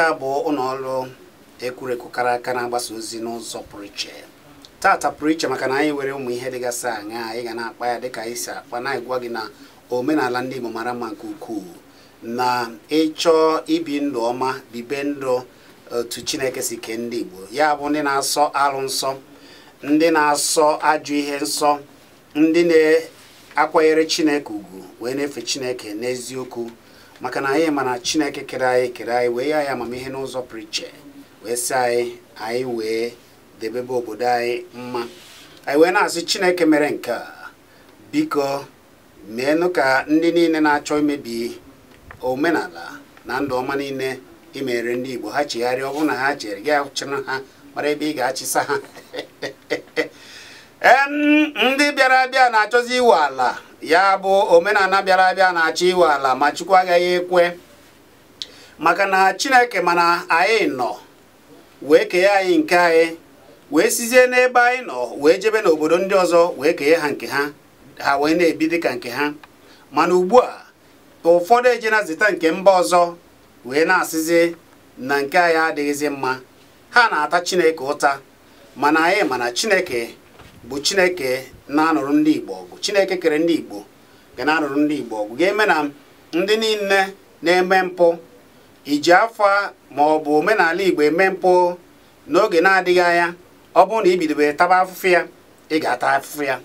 nke a bụ ụlọ ọrụ ekwurekwu kara aka na-agbasa ozi n'ụzọ pụrụ iche tata pụrụ iche maka na anyị were ụmụ ihe dịgasị anya anyị ga na-akpa ya dịka anyị si akpa na-agwa gị na omenala ndị Igbo mara mma nke ukwuu na ịchọ ibi ndụ ọma bibe ndụ otu Chineke si kee ndị Igbo ya bụ ndị na-asọ alụ nsọ ndị na-asọ ajụ ihe nsọ ndị na-akwanyere Chineke ugwu wee na-efe Chineke n'eziokwu maka na anyị ma na chineke kere anyị kere anyị wee ya ya amamihe n'ụzọ priche wee sị anyị anyị wee debebe obodo anyị mma anyị wee na-asị chineke mere nke a biko meenụ ka ndị niile na-achọ imebi omenala na ndụ ọma niile imere ndị Igbo ha chigharịa ọ bụrụ na ha chere gị chịrị ha mara ebe ị ga-achịsa ha ndị bịara abịa na-achọzi iwe ala ya bụ omenala bịara abịa na-achọ iwe ala ma Chukwu agaghị ekwe maka na Chineke mana anyị nọ wee kee anyị nke anyị wee sizie n'ebe anyị nọ wee jebe n'obodo ndị ọzọ wee kee ha nke ha ha wee na-ebi ka nke ha mana ugbu a ụfọdụ na zita nke mba ọzọ wee na-asịzi na nke anyị adịghịzi mma ha na-ata Chineke ụta mana anyị mana Chineke bụ Chineke na-anụrụ ndị Igbo ọgụ Chineke kere ndị Igbo ga na-anụrụ ndị Igbo ọgụ ga-eme na ndị niile na-eme mpụ iji afọ ma ọ bụ omenala Igbo eme mpụ n'oge na-adịghị anya ọ bụrụ na i taba afụfụ ya ị ga-ata afụfụ ya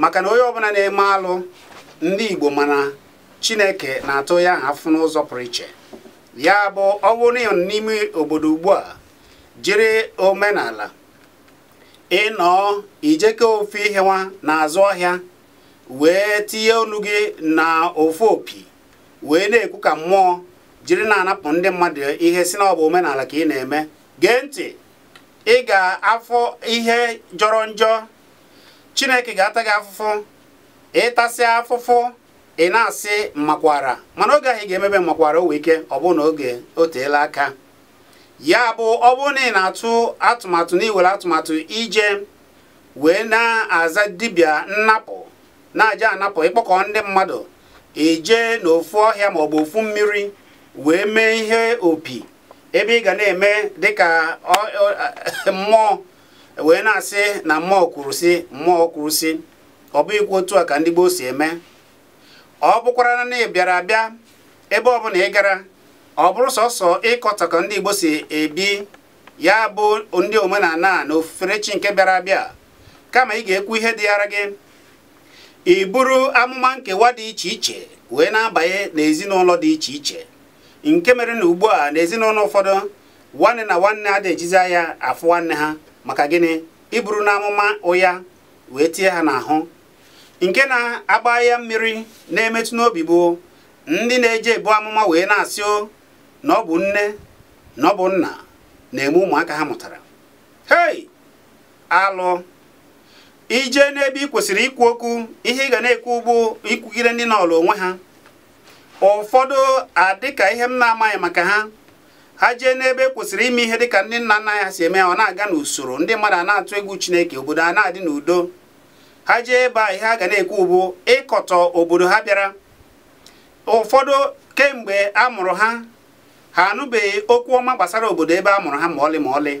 maka na onye ọbụla na-eme alụ ndị Igbo mana Chineke na-atụ ya ahụ afụ n'ụzọ pụrụ iche ya bụ ọ bụrụ n'ime obodo ugbu a jiri omenala ịnọọ ijeke ofu ihe nwa n'azụ ọhịa wee tinye olu gị na ofu opi wee na-ekwu ka mmụọ jiri na-anapụ ndị mmadụ ihe si na ọ omenala ka ị na-eme gee ntị ị ga-afọ ihe jọrọ njọ chineke ga-ata gị afụfụ ịtasị afụfụ ị na-asị makwara mana oge ahụ ị ga-emebe makwara o wee ike ọ oge o aka ya bụ ọ bụrụ na ị na-atụ atụmatụ na iwere atụmatụ ije wee na-aza dibịa nnapụ na-aja anapụ ịkpọkọ ndị mmadụ eje n'ofu ọhịa maọbụ ofu mmiri wee mee ihe opi ebe ị ga na-eme dịka mmụọ wee na-asị na mmụọ kwurusi mmụọ kwurusi ọ bụ ikwu otu a ka ndị gboo si eme ọ bụkwara na ị bịara abịa ebe ọbụla ị gara ọ bụrụ sọsọ ịkọta ka ndị Igbo si ebi ya bụ ndị omenala na ofufere chi nke bịara abịa kama ị ga-ekwu ihe dị yara gị iburu amụma nkewa dị iche iche wee na-abanye n'ezinụlọ dị iche iche nke mere na ugbu a n'ezinụlọ ụfọdụ nwanne na nwanne ha da-ejizi anya afụ nwanne ha maka gịnị iburu na amụma ụya wee tie ha n'ahụ nke na-agba ya mmiri na-emetụ n'obi bụ ndị na-eje ebu amụma wee na-asị o na ọ bụ nne na ọ bụ nna na-eme ụmụaka ha mụtara hei alụ ije n'ebe ị kwesịrị ikwu okwu ihe ị ga na-ekwu bụ ikwugide ndị n'ọlụ onwe ha ụfọdụ adịka ihe m na-amaghị maka ha ha jee n'ebe e kwesịrị ime ihe dịka ndị nna nna ya si eme ọ na-aga n'usoro ndị mmadụ a na-atụ egwu chineke obodo a na-adị n'udo ha jee ebe a ihe a ga na-ekwu bụ ịkọtọ obodo ha bịara ụfọdụ kemgbe a mụrụ ha ha anụbeghị okwu ọma gbasara obodo ebe a mụrụ ha ma ọlị ma ọlị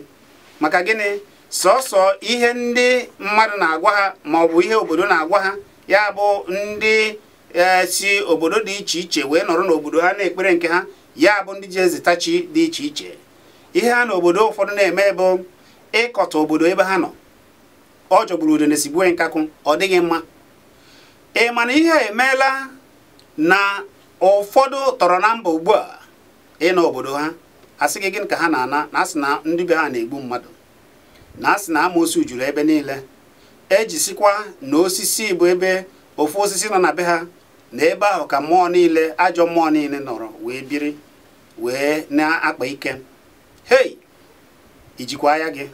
maka gịnị sọsọ ihe ndị mmadụ na-agwa ha ma ọ bụ ihe obodo na-agwa ha ya bụ ndị e, si obodo dị iche iche wee nọrọ n'obodo ha na-ekpere nke ha ya bụ ndị ji ezitachi dị iche iche ihe ha na obodo ụfọdụ na-eme bụ ịkọta obodo ebe ha nọ ọ jọgburu udo na-esigbue nkakụ ọ dịghị mma ị ma na ihe emeela na ụfọdụ tọrọ na mba ugbu a ịnọ na obodo ha sị gị gịnị ka ha na-ana na asị na ndị be ha na-egbu mmadụ na asị na amoosu juru ebe niile ejisikwa na osisi bụ ebe ofu osisi nọ na be ha na ebe ahụ ka mmụọ niile ajọ mmụọ niile nọrọ wee biri wee na-akpa ike hei ijikwa ya gị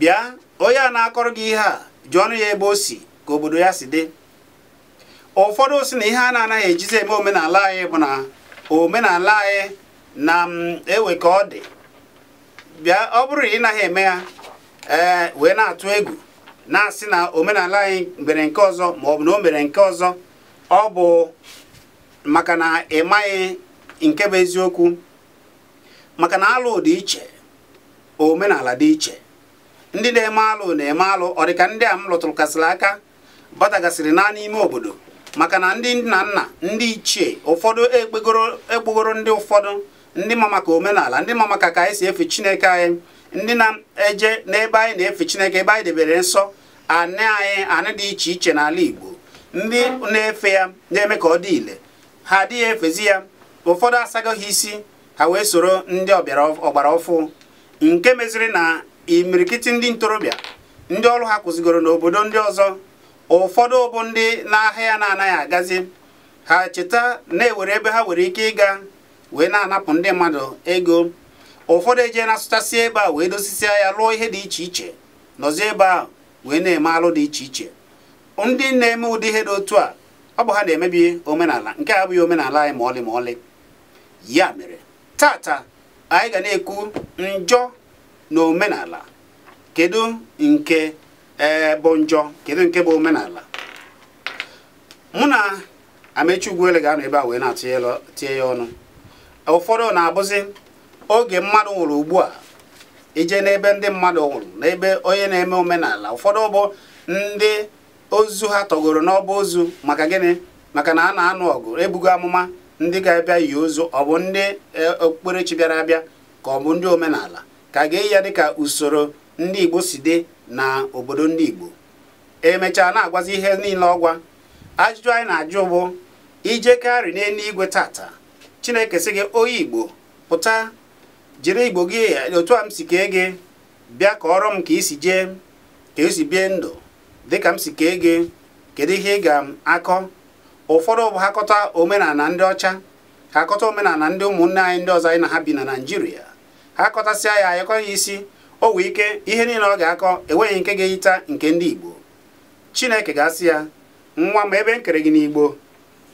bịa onye a na-akọrọ gị ihe a jụọnụ ya ebe o si ka obodo ya si dị ụfọdụ si na ihe a na-anaghị ejizi eme omenala anyị bụ na omenala anyị e, na mm, ewe ka ọ dị bịa ọ bụrụ na ị naghị eme ya ee wee na-atụ egwu na-asị na omenala anyị mere nke ọzọ ma ọ bụ na o mere nke ọzọ ọ bụ maka na ị nke bụ eziokwu maka na alụ dị iche omenala dị iche ndị na-eme alụ na-eme alụ ọ dị ka ndị a m lụtụrụ kasịrị aka batagasịrị na n'ime obodo maka na ndị nna nna ndị ichie ụfọdụ ekpegoro ndị ụfọdụ ndị ma maka omenala ndị ma maka ka anyị si efe chineke anyị ndị na-eje n'ebe anyị na-efe chineke ebe anyị debere nsọ anị anyị anị dị iche iche n'ala Igbo ndị na-efe ya na-eme ka ọ dị ile ha adịghị efezi ya ụfọdụ asagoghị isi ha wee soro ndị ọbịara ọgbara ọfụ nke meziri na imirikiti ndị ntorobịa ndị ọrụ ha kwụzigoro n'obodo ndị ọzọ ụfọdụ bụ ndị n'ahịa na-anaghị agazi ha cheta na-ewere ebe ha nwere ike ịga wee na-anapụ ndị mmadụ ego ụfọdụ ejee na-asụchasị ebe a wee dosisia ya lụọ ihe dị iche iche nọzi ebe a wee na-eme alụ dị iche iche ndị na-eme ụdị ihe dị otu a ọ bụ ha na-emebi omenala nke a abụghị omenala anyị ma ọlị ma ọlị ya mere tata anyị ga na-ekwu njọ na omenala kedu nke ee eh, bụ njọ kedu nke bụ omenala mụ na Amechi Ugwuele ga-anọ ebe a wee na-atụtie ya ọnụ ụfọdụ na-abụzi oge mmadụ nwụrụ ugbu a ije n'ebe ndị mmadụ nwụrụ n'ebe onye na-eme omenala ụfọdụ bụ ndị ozu ha tọgoro n'ọba ozu maka gịnị maka na a na-anụ ọgụ ebugo amụma ndị ga-abịa yi ozu ọ bụ ndị eh, okpukperechi bịara abịa ka ọ bụ ndị omenala ka a ga-eyi ya dịka usoro ndị igbo si dị na obodo ndị igbo emechaa na-agwazi ihe niile ọgwa ajụjụ anyị na-ajụ bụ ijekari n'eluigwe tata chineke sị gị onye igbo pụta jiri igbo gị otu a m si kee gị bịa kọọrọ m ka isi jee ka esi bie ndụ dịka m si kee gị kedu ihe ị ga-akọ ụfọdụ bụ ha kọta omenala ndị ọcha ha kọta omenala ndị ụmụnne anyị ndị ọzọ anyị na ha bi na naijiria ha kọtasịa ya ayakọ ya isi o nwee ike ihe niile ọ ga-akọ enweghị nke ga-eyita nke ndị Igbo Chineke ga-asị ya nwa m ebe nkere kere gị n'Igbo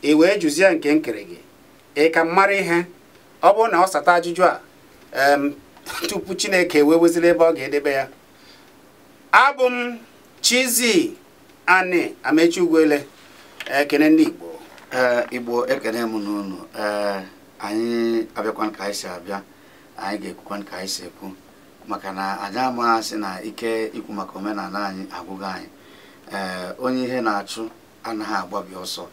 e wee jụzie nke nkere gị ị ka m mara ihe ọ bụrụ na ọ sata ajụjụ a tupu Chineke wee weziri ebe ọ ga-edebe ya abụ m chizi Ani Amechi Ugwuele ekene ndị Igbo e, Igbo ekene m n'ụnụ e, anyị abịakwa ka anyị si abịa anyị ga-ekwukwa ka anyị si ekwu maka na anyị amaghasị na ike ikwu maka omenala anyị agwụghị anyị onye ihe na-achụ anaghị agbabi ọsọ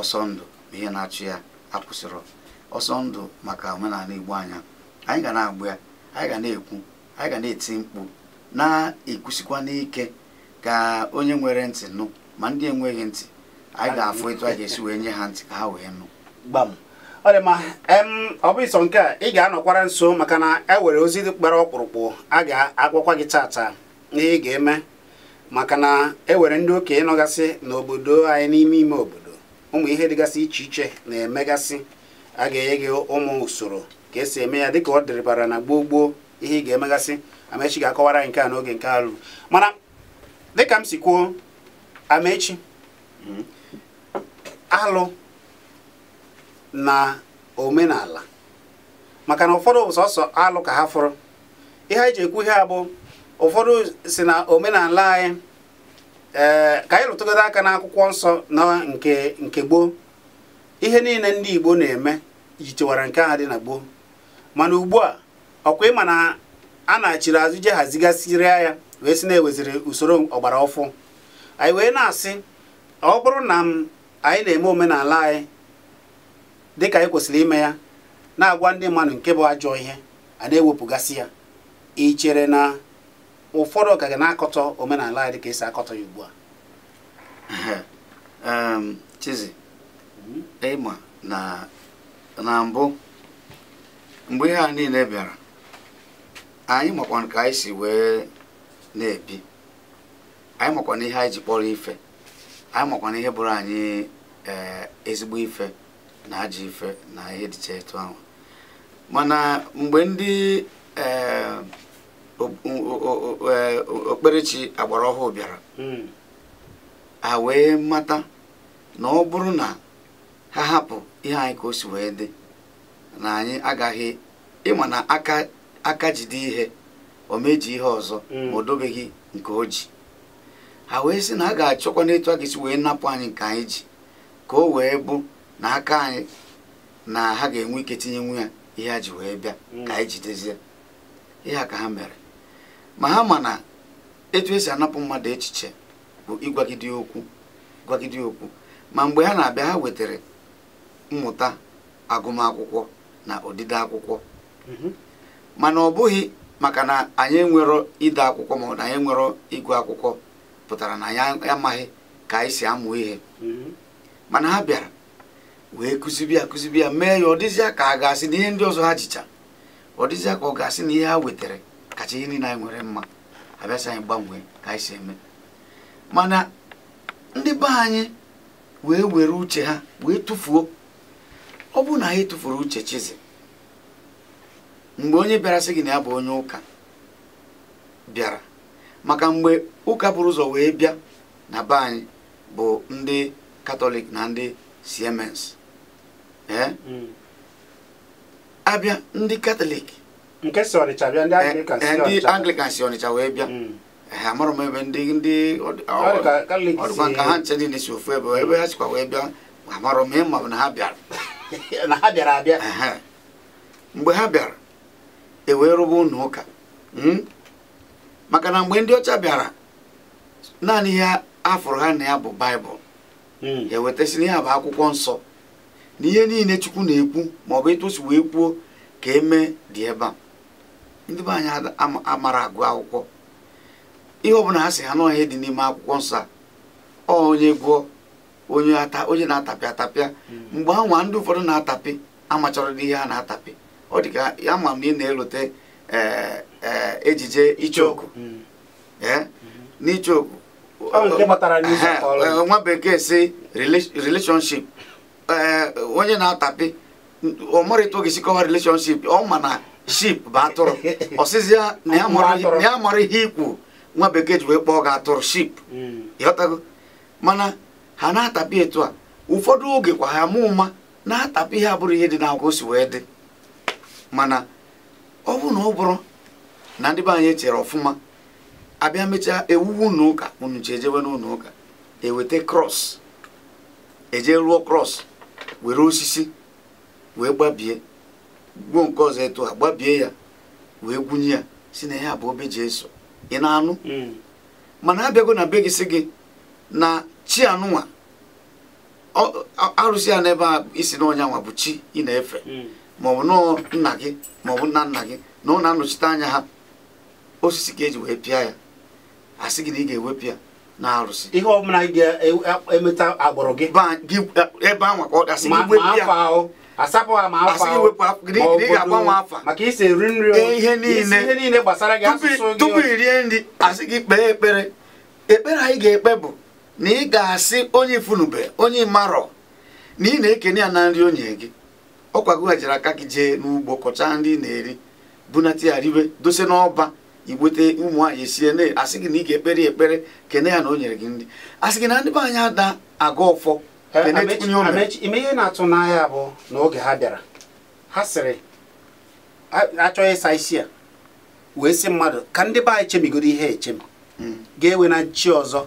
ọsọ ndụ ma ihe na-achụ ya akwụsịrị ọsọ ndụ maka omenala igbo anya anyị ga na-agbụ ya anyị ga na-ekwu anyị ga na-eti mkpu na-ekwusikwa n'ike ka onye nwere ntị nụ ma ndị enweghị ntị anyị ga-afụ etu a ga-esi wee nye ha ntị ka ha wee nụ gbam ọ dị mma ọ bụ sọ nke a ị ga-anọkwara nso maka na e nwere ozi dị kpara ọkpụrụkpụ a ga-agwakwa gị tata na ị ga-eme maka na e nwere ndị okenye nọgasị n'obodo anyị n'ime ime obodo ụmụ ihe dịgasị iche iche na-emegasị a ga-enye gị ụmụ usoro ka esi eme ya dịka ọ dịrịbara na gboo gboo ihe ị ga-emegasị amechi ga-akọwara anyị nke a n'oge nke alụ mana dịka m si kwuo amechi hmm? alụ na omenala maka na ụfọdụ bụ sọsọ alụ ka ha fụrụ ihe anyị ji ekwu ihe a bụ ụfọdụ si na omenala anyị ee eh, ka anyị rụtụgodo aka n'akwụkwọ nsọ na nke nke gboo ihe niile ndị igbo na-eme chewara nke ahụ dị na gboo mana ugbu a ọkwa ịma na a na-achiri azụ je hazigasịrịa ya wee sị na-eweziri usoro ọgbara ọfụ anyị wee na-asị ọ bụrụ na m anyị na-eme omenala anyị dịka anyị e kwesịrị ime ya na-agwa ndị mmadụ nke bụ ajọ ihe a na-ewepụgasị ya ichere na ụfọdụ ka ga na-akọtọ omenala ya dịka esi akọtọ ya ugbu a Chizie, mm-hmm. ịma na na mbụ mgbe ihe a niile bịara anyị makwana ka anyị si wee na-ebi anyị makwana ihe anyị ji kpọrọ ife anyị makwana ihe bụrụ anyị eh, ezigbo ife na ajọ ife na ihe dịcha etu ahụ mana mgbe ndị eh, okperechi eh, agbara ọhụụ bịara hmm. a wee mata na ọ bụrụ na ha hapụ ihe anyị ka o si wee dị na anyị agaghị ịma na aka jide ihe o meji ihe ọzọ hmm. ma o dobeghị nke o ji ha wee sị na a ga-achọkwa n'etu a ga-esi wee napụ anyị nke anyị ji ka o wee bụ na aka anyị na ha ga-enwe ike tinye tinyenwu ya ihe a ji wee bịa mm. ka anyị jidezie ihe a ka ha mere ma ha ma na etu esi anapụ mmadụ echiche bụ ịgwagide okwu gwagide okwu ma mgbe ha na-abịa ha wetara mmụta agụmakwụkwọ na odide akwụkwọ mm-hmm. mana ọ bụghị maka na anyị enwero ide akwụkwọ ma na anyị enwero ịgụ akwụkwọ pụtara na anyị amaghị ka anyị si amụ ihe mm-hmm. mana ha bịara wee kụzibi ya kụzibi ya mee ya ọ dịzịa ka a ga-asị na ihe ndị ọzọ ha jicha ọ dịzịa ka ọ ga-asị na ihe ha wetara kacha ihe niile anyị nwere mma abịasị anyị gbanwee ka anyị si eme mana ndị be anyị wee were uche ha wee tụfuo ọ bụrụ na anyị tụfuru uche chizi mgbe onye bịara sị gị na ya bụ onye ụka bịara maka mgbe ụka bụrụ ụzọ wee bịa na be anyị bụ ndị katọlik na ndị siemens Hmm. abịa ndị katọlik Nke si ndị Anglịkan si ọnịcha wee bịa hmm. amarọ m ebe ndị ndị ọdụkwa nka ha nche niile si ofu ebe ebe ha sikwa wee bịa amarọ m ịma na ha bịara na ha bịara abịa mgbe ha bịara ewee rụba ụnụ ụka hmm? maka na mgbe ndị ọcha bịara naanị ihe afọrọ ha na ya bụ baịbụl ewetasịrị ya bụ akwụkwọ nsọ na ihe niile chukwu na-ekwu ma ọ bụ ịtụsi wee kwuo ka eme dị ebe a ndị be anyị amara agụ akwụkwọ ihe ọbụla ha si ha na ọhịa dị n'ime akwụkwọ nsọ a onye gụọ onye ata onye na-atapịa atapịa hmm. mgbe anwa ndị ụfọdụ na-atapị amachọrọdị ihe ha na-atapị ọ dị ka ya ma m na ị na-elote e, e, ejije icheoku hmm. hmm. n'icheoku e, nwa bekee si relationship Eh, onye na-atapi ọ mara etu ga relationship ọ ma na ship bụ atụrụ ọsịzi ya na ya mara ihe ikwu nwa bekee ji wee kpọọ gị atụrụ ship mm. ịghọtago mana ha na-atapi etu a ụfọdụ oge kwa ha mụ na-atapị ihe abụrụ ihe dị n'akwụkwọ si wee dị mana ọ bụrụ na ọ bụrụ na ndị be anyị echere ọfụma abịa mechaa ewuwu ụlọ ụka unu ji ejewe n'ụlọ ụka eweta krọs eje ruo krọs were osisi wee gbabie gbuo nke ọzọ etu gbabie ya wee gwunye ya si na ya bụ obe jesu ị na-anụ hmm. mana abịago na be gị si gị na chi anụnwa arụsị ya n'ebe a isi nwa bụ chi ị na-efe hmm. maọbụ nọ nna gị maọbụ nna nna gị na ọ na-anọchite anya ha osisi ka eji wee pịa ya sị gị na ị ga-ewepụ ya na arụsị ihe ọbụla ga-emeta e- e- e- agbụrụ gị ebe anwa ka ọ gasị asapụ ha ma afọ ahụ maka isi eri nri ihe niile gbasara gị asụsụ gị tupu i rie nri asị gị kpee ekpere ekpere anyị ga-ekpe bụ na ị ga-asị onye ifunube onye marọ na ị na-ekene ya na nri onye gị ọkwa gị jere aka gị jee n'ugbo kọchaa nri na-eri bunata ya ribe dose n'ọba igbute ụmụ nwaanyị esie na asị gị na ị ga-ekpere ekpere kene ya na o nyere gị nri asị gị na ndị be anyị ada aga ọfọ ime ihe na-atụ n'anya bụ na oge ha bịara ha sịrị achọghị ịsa isi a wee sị mmadụ ka ndị be anyị chemigoro ihe echem hmm. ga-ewe na chi ọzọ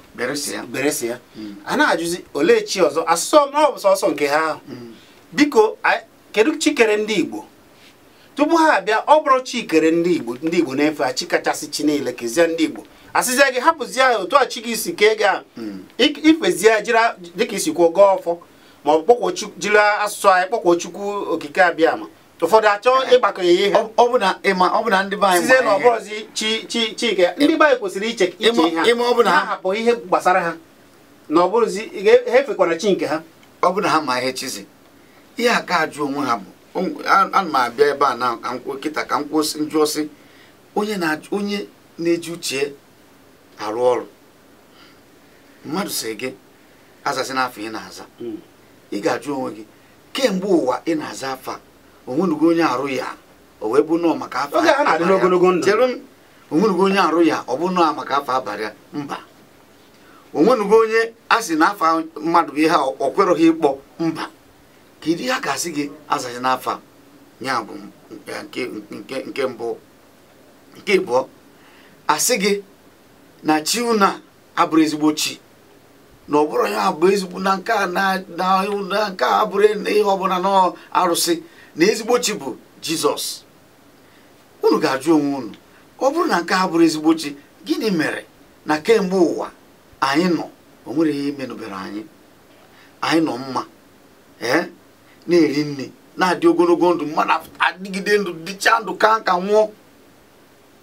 beresi ya hmm. a na-ajụzi olee chi ọzọ asụsụ ọ bụ sọsọ nke ha ahụ hmm. biko kedu chi kere ndị Igbo tupu ha abịa ọ bụrụ Chikere ndị igbo ndị igbo na-efe a, chi kachasị chi niile kezie ndị igbo asịzie gị hapụzie otu a chi gị si kee gị a. Hmm. ifezie jiri dịka isi kwuo gaa ọfọ ma ọ bụ jiri asụsụ anyị kpọkwuo chukwu okike abịa ma ụfọdụ achọ ịgbakọ ya ihe sizie na ọbụrụzi chi chi chike ndị be anyị kwesịrị iche ihe ha hapụ ihe gbasara ha na ọ bụrụzi ha efekwara chi nke ha ọ bụ ha ma ihe chizi ihe aka ajụ onwe ha bụ ana m abịa ebe a na nkịta ka m kwụsị njụọsị onye na-eji uche arụ ọrụ mmadụ si gị azazi n'afọ ị na-aza hmm. ị ga-ajụ onwe gị kemgbe ụwa ị na-aza afọ onwenugo onye arụ ya o wee bụ nọọ maka afọ onwenugo onye arụ ya ọ bụ nọọ maka afọ abalị mba onwenugo onye a sị na afọ mmadụ bụ ihe ọkweroghị ịkpọ mba kedu ihe a ga-asị gị azaghị n'afọ ya bụ nke mbụ nke ịbụọ asị gị na chi unu abụrụ ezigbo chi na ọ bụrụ ya bụ ezigbo na nke a na nke a bụrụ ihe ọbụla na arụsị na ezigbo chi bụ jizọs unu ga-ajụ onwe unu ọ bụrụ na nke a bụrụ ezigbo chi gịnị mere na kemgbe ụwa anyị nọ o nwere ihe imenụbere anyị anyị nọ mma ee na-eri nne na-adị ogologo ndụ mmadụ adịgide ndụ dịcha ndụ ka ka nwụọ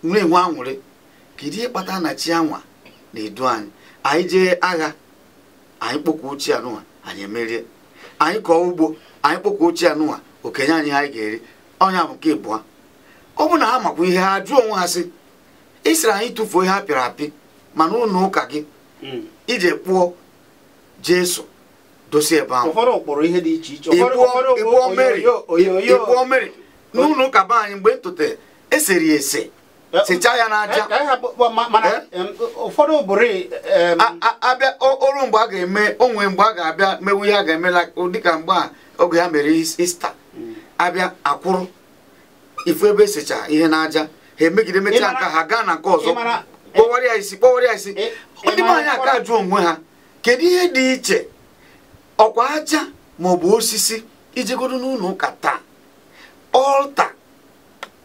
nwee enwe anwụrị kedu ihe kpata na chi anwa na-edu anyị anyị jee agha anyị kpọkwa ochie anụwa anyị emerie anyị kọọ ugbo anyị kpọkwa ochie anụwa okenye anyị anyị ga-eri ọnya bụ nke ịbụa ọ bụ na ha makwa ihe ha jụọ onwe ha sị ịsịrị anyị tụfuo ihe ha pịrị apị mana ụlọ ụka gị hmm. ije kpụọ jesu dosie ebe ahụ ịbụọ mmiri n'ụlọ ụka be anyị mgbe ntụte eseri ese e, sichaa ya n'aja e, abịa e? oru mgbe a ga-eme onwe mgbe a ga-abịa mewu ya ga-emela dịka mgbe a oge ya mere ista abịa akwụrụ ifu ebe esicha ihe n'aja ha emegide mechaa nka ha gaa na nke ọzọ kpọwara ya isi kpọwara ya isi ndị anyị aka jụọ onwe ha kedu ihe dị iche ọkwa aja ma ọ bụ osisi ijegodo n'ụlọ ụka taa ọlta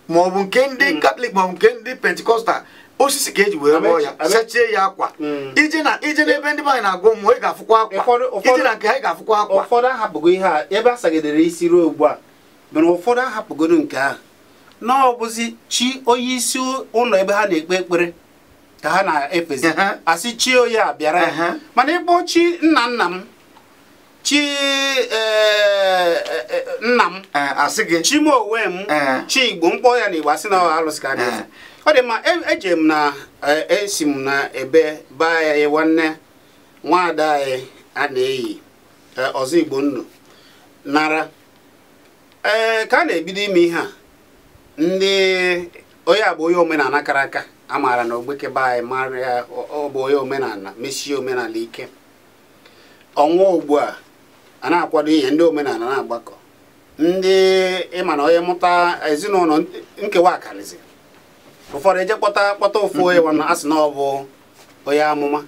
ma ọ bụ nke ndị katọlik hmm. ma ọ bụ nke ndị pentikọstal osisi ka eji wee rụọ ya sechie ya akwa hmm. ije na ije n'ebe ndị anyị na-agụ mmụọ ị ga-afụkwa akwa ije na nke ha ị ga-afụkwa akwa ụfọdụ ahapụgo ihe a ebe a sagidere isi ruo ugbu a mere ụfọdụ ahapụgoro nke ahụ na chi onye isi ụlọ ebe ha na-ekpe ekpere ka ha na-efezi asị chi onye a bịara mana ebe chi nna nna m chi e, e, e, nna m asị gị chimowe m chi igbo mkpọ ya na igbo asị na alụsị ka ọ dị mma eje m na esi m na ebe baa ya nwanne nwaada anyị a na-eyi ọzọ igbo nnu nara ee ka a na-ebido ime ihe a ndị onye abụ onye omenala kara aka a maara na ogbeke be anyị mara ya ọ bụ onye omenala mesie omenala ike ọnwa ugbu a a na-akwado ihe ndị omenala na-agbakọ ndị ịma na onye mụta ezinụlọ nkewa akarịzi ụfọdụ eje kpọta kpọta ofu onye wana a na ọ bụ onye amụma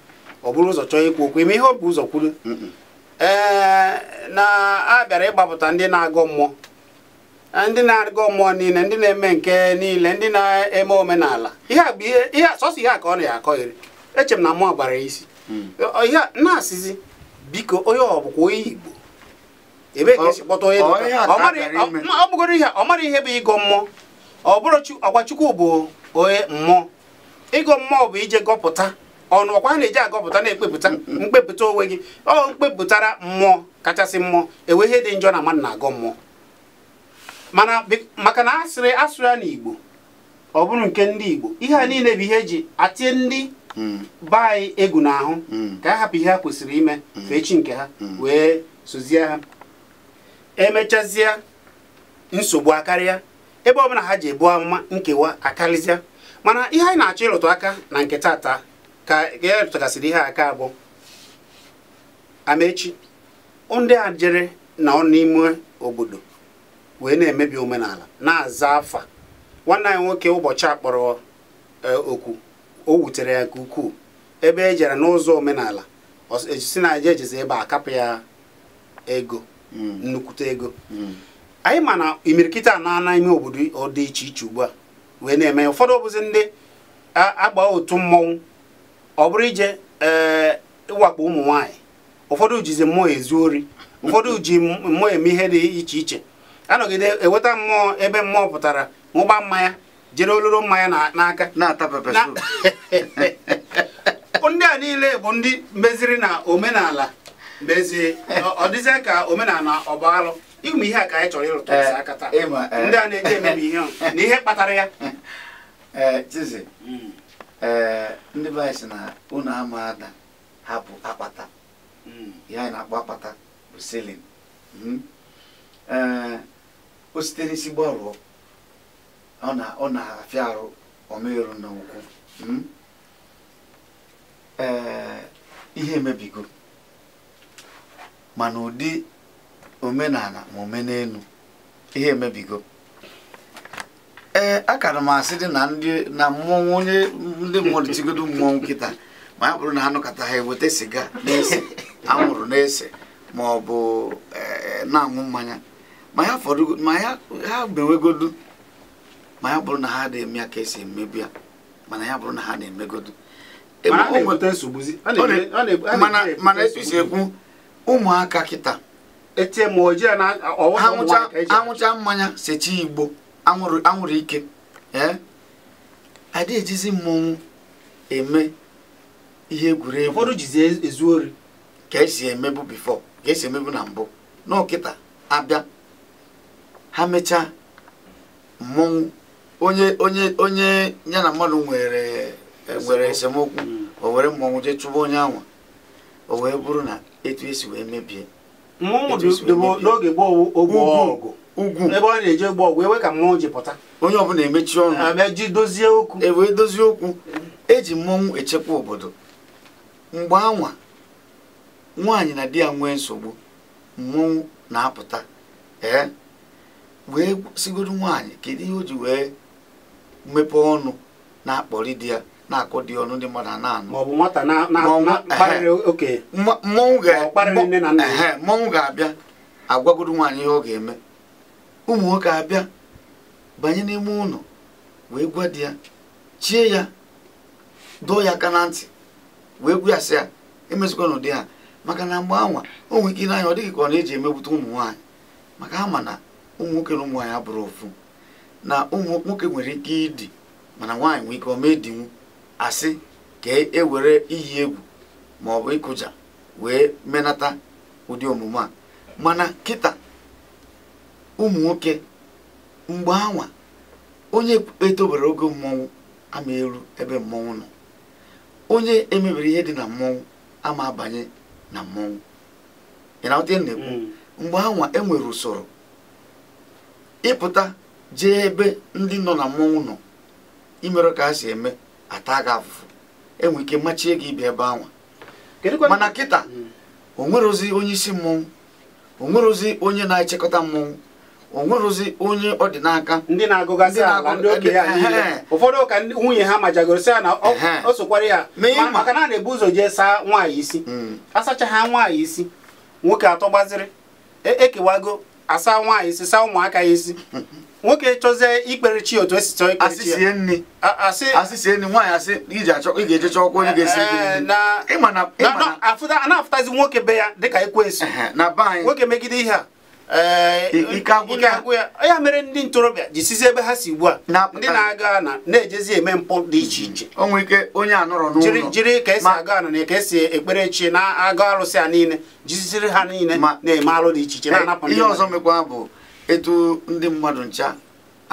ọ bụrụ ụzọ chọọ ikwu okwu ime ihe ọ bụ ụzọ kwuru ee na a bịara ịgbapụta ndị na agọ mmụọ e, ndị na agọ mmụọ niile ndị na-eme nke niile ndị na-eme omenala ihe a bụ ihe sọsọ ihe a ka ọ na ya akọghịrị eche m na mụọ gbara isi hmm. ihe na-asịzi biko onye ọ bụkwa onye Igbo Ebe ka esi kpọta onye ọ bụgoro ihe ọ mara ihe bụ ịgọ mmụọ ọ ọkwa chukwu bụ onye mmụọ ịgọ mmụọ bụ ije gọpụta ọnụ ọkwa na-eji agọpụta na-ekpepụta mkpepụta onwe gị ọ mkpepụtara mmụọ kachasị mmụọ enwe ihe dị njọ na mmadụ na-agọ mmụọ mana maka na asịrị asụrụ ya n'Igbo ọ bụrụ nke ndị Igbo ihe a niile bụ ihe eji atie ndị be anyị egwu n'ahụ mm. ka a hapụ ihe ha kwesịrị ime mm. fee chi nke ha mm. wee sozie ha emechazịa nsogbu akarịa ebe ọbụla ha ji ebu amụma nkewa akarịzịa mana ihe anyị na-achọ ịrụtụ aka na nke tata ka ya e rụtụgasịrị ihe aka abụ amechi ndị a jere na ọ n'ime obodo wee na-emebi omenala na-aza afa nwanne anyị nwoke ụbọchị akpọrọ okwu e, o wutere ya nke ukwuu ebe e jere n'ụzọ omenala e, si na eje ejezi ebe a kapụ ya ego nnukwute ego anyị ma na imirikiti ana na ime obodo ọ dị iche iche ugbu a wee na-eme ụfọdụ ọbụzi ndị agba otu mmọnwụ ọ bụrụ ije ee eh, ịwakpo ụmụ nwaanyị ụfọdụ jizi mmụọ ezu ori ụfọdụ ji mmụọ eme ihe dị iche iche anọgide eweta mmụọ ebe mmụọ pụtara ṅụgba mmanya jere ololo mmanya n'aka ndị a niile bụ ndị meziri na omenala mezie ọ dịzie ka omenala ọba alụ ịmụ ihe a ka anyị chọrọ ịrụta eh, isi aka taa eh, ndị a na-eji emebi ihe na ihe kpatara ya eh, Chizi hmm. ndị be anyị si na unu ama ada hapụ akpata hmm. ihe anyị na-akpọ akpata bụ silin hmm. o site n'isi gbarụọ ọ na-afịa arụ ọmerụ na ụkwụ ee ihe emebigo mana ụdị omenala ma omenelu ihe emebigo ee akara m asị dị na ndị na mmọnwụ onye ndị mmadụ tigodo mmọnwụ nkịta ma ya bụrụ na ha nụkọta ha eweta siga na-ese anwụrụ na-ese ma ọ bụ e, na-aṅụ mmanya ma ya fọdụ ma ya ha mewegodu ma ya bụrụ na ha na-eme ya ka esi emebi ya mana ya bụrụ na ha na-emegodu e, mana etu isi ekwu ụmụaka kịta anwụcha e mmanya secha igbo anwụrụ ike adị ejizi mmọnwụ eme ihe egwuregwu ụfọdụ e, ezu ori ka esi emebu bifo ka esi emebu na mbụ n'ọkịta abịa ha mechaa mmọnwụ onye onye onye ya na mmadụ nwere e, nwere esemokwu hmm. o were mmọnwụ jee chụba onye anwa o wee bụrụ na etu esi wee mebie n'oge gboo ogbu ugwu ebe ọ na-eje gbaa ọgwụ ewe ka mmụọ ji pụta onye ọbụla emechi ọnụ abịa ji dozie okwu ewee dozie okwu eji mmọnwụ echekwa obodo mgbe anwa nwaanyị na di ya nwee nsogbu mmọnwụ na-apụta ee wee sigoro nwaanyị kedu ihe o ji wee mepee ọnụ na-akpọri di ya na-akụ dị ọnụ ndị mmadụ na-anụ mmọnwụ ga-abịa agwagodo nwaanyị ihe ọ ga-eme ụmụ nwoke abịa banye n'ime ụlọ wee gwa di ya chie ya dụọ ya aka na ntị wee gwa ya sị ya n'ụdị ha maka na mgbe anwa o nwere ike n'anya ọ dịghị ka ọ na-eji emegbute ụmụ nwaanyị maka ha ma na ụmụ nwoke na ụmụ nwaanyị abụrụ ofu na ụmụ nwoke nwere ike ịdị mana nwaanyị nwere ike ọ ma edinwu asị ka ewere e iyi egwu ma ọ bụ ịkụja wee menata ụdị omume a mana kịta ụmụ nwoke mgbe anwa onye etobere oge mmọnwụ ama eru ebe mmọnwụ nọ onye emebere ihe dị na mmọnwụ ama abanye na mmọnwụ ị na na-ekwu mm. mgbe anwa enwere usoro ịpụta jee ebe ndị nọ na mmọnwụ nọ imerụ ka ha si eme ata gị afụfụ enwe ike machie gị ibi ebe anwa mana kịta o nwerozi onye isi mmọnwụ onwerozi onye na-echekọta mmọnwụ o nwerozi onye ọ dị n'aka ndị na-agụgasị ala ndị okenye ya niile ụfọdụ ka nwunye ha majagoro sị ya na ọ sokwara ya maka na a na-ebu ụzọ jee saa nwaanyị isi hmm. asacha ha nwaanyị isi nwoke atọ gbaziri ekewago e asaa nwaanyị isi saa ụmụaka ya isi nwoke chọzie ikpere chi otu esi chọọ ikpere chi asị sie nri nwaanyị asị iji achọ ị ga-eje chọọ ọkwa onye ga-esi a na-afụtazi nwoke be ya dịka ekwensu nwoke megide ihe a eh, ike agwụ ya ya mere ndị ntorobịa jisizi ebe ha si ugbu a ndị na-aga na na-ejezi eme mpụ dị iche iche onwe ike onye a nọrọ n'ụlọ jiri ka esi aga ana na ka esi ekpere chi na-aga arụsị a niile jiziziri ha niile na-eme alụ dị iche iche na-anapụ eh, ihe ọzọ mekwa bụ etu ndị mmadụ ncha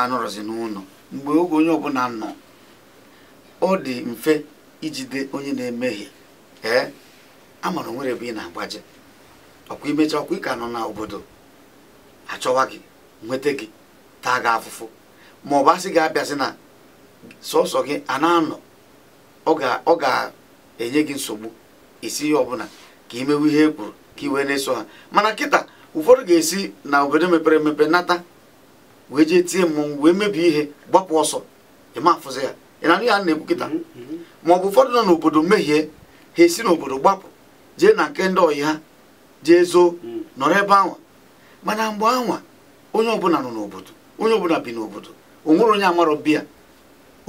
anọrọzi n'ụlọ mgbe oge onye ọbụla nọ ọ dị mfe ijide onye na-emehie ee amara onwere bụ ị na-agbaje ọkwa imecha ọkwa ịka nọ n'obodo achọwa gị nweta gị taa gị afụfụ ma ọ bụ asị gị abịasị na sọsọ gị a na-anọ ọ ga-enye gị nsogbu isi ihe ọbụla ka imewe ihe e kwuru ka iwe na-eso ha mana kịta ụfọdụ ga-esi na obodo mepere emepe nata wee jee tie mmọnwụ wee mebie ihe gbapụ ọsọ ịma afụzi ya ị na-anụ ya na-ekwu kịta ma ọ bụ ụfọdụ nọ n'obodo mehie ha esi n'obodo gbapụ jee na nke ndị ọyị ha jee zoo mm. nọrọ ebe anwa mana mgbe anwa onye ọbụla nọ n'obodo onye ọbụla bi n'obodo onwere onye amarọ biya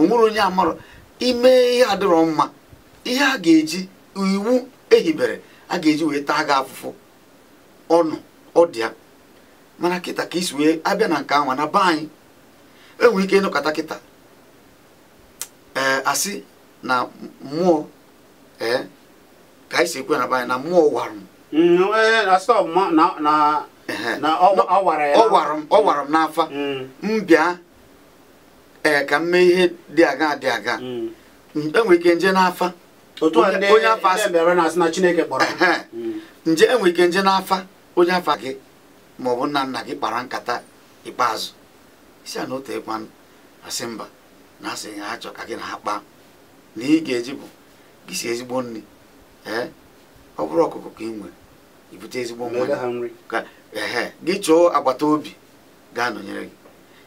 onwere onye amarọ ime ihe adịrọ mma ihe a ga-eji iwu ehibere a ga-eji wee taa gị afụfụ ọnụ ọ dị ya mana kịta ka isi wee abịa na nke anwa na be anyị enwe ike ịnụkọta kịta ee asị na mmụọ ee ka anyị si ekwe na be anyị na mmụọ wara mm, e, m ọ wara m n'afa mm. m bịa ee ka m mee ihe dị aga dị aga mm. enwe ike nje n'afa onye kpọrọ. nje enwere ike nje n'afa onye afa gị ma ọ bụ nna nna gị kpara nkata ikpeazụ isi a na otu asị mba na asị ha chọ ka gị na ha kpaa na ị ga-eji bụ gị si ezigbo nri ee ọ bụrụ ọkụkọ ka ị nwere ibute ezigbo nwa gị chụọ agbata obi gaa anọnyere gị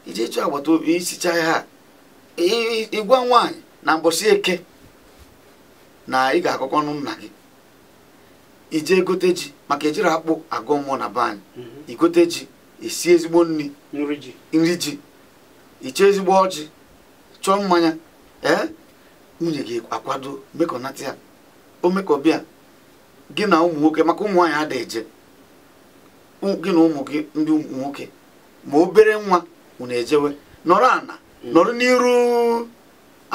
ije chụọ agbata obi isichaa ha ịgwa nwaanyị na mbọsị eke na ị ga-akọkọ ọnụ nna gị ije gote ji maka ejiri akpụ agụ mmụọ na be anyị mhm. igote ji esi ezigbo nri nri ji iche ezigbo ọjị chọọ mmanya ee nwunye gị akwado mekọnata ya o mekọbịa gị na ụmụ nwoke maka ụmụ nwaanyị ada eje gị na ụmụ gị ndị nwoke ma obere nwa unu ejewe nọrọ ana mm. nọrọ n'iru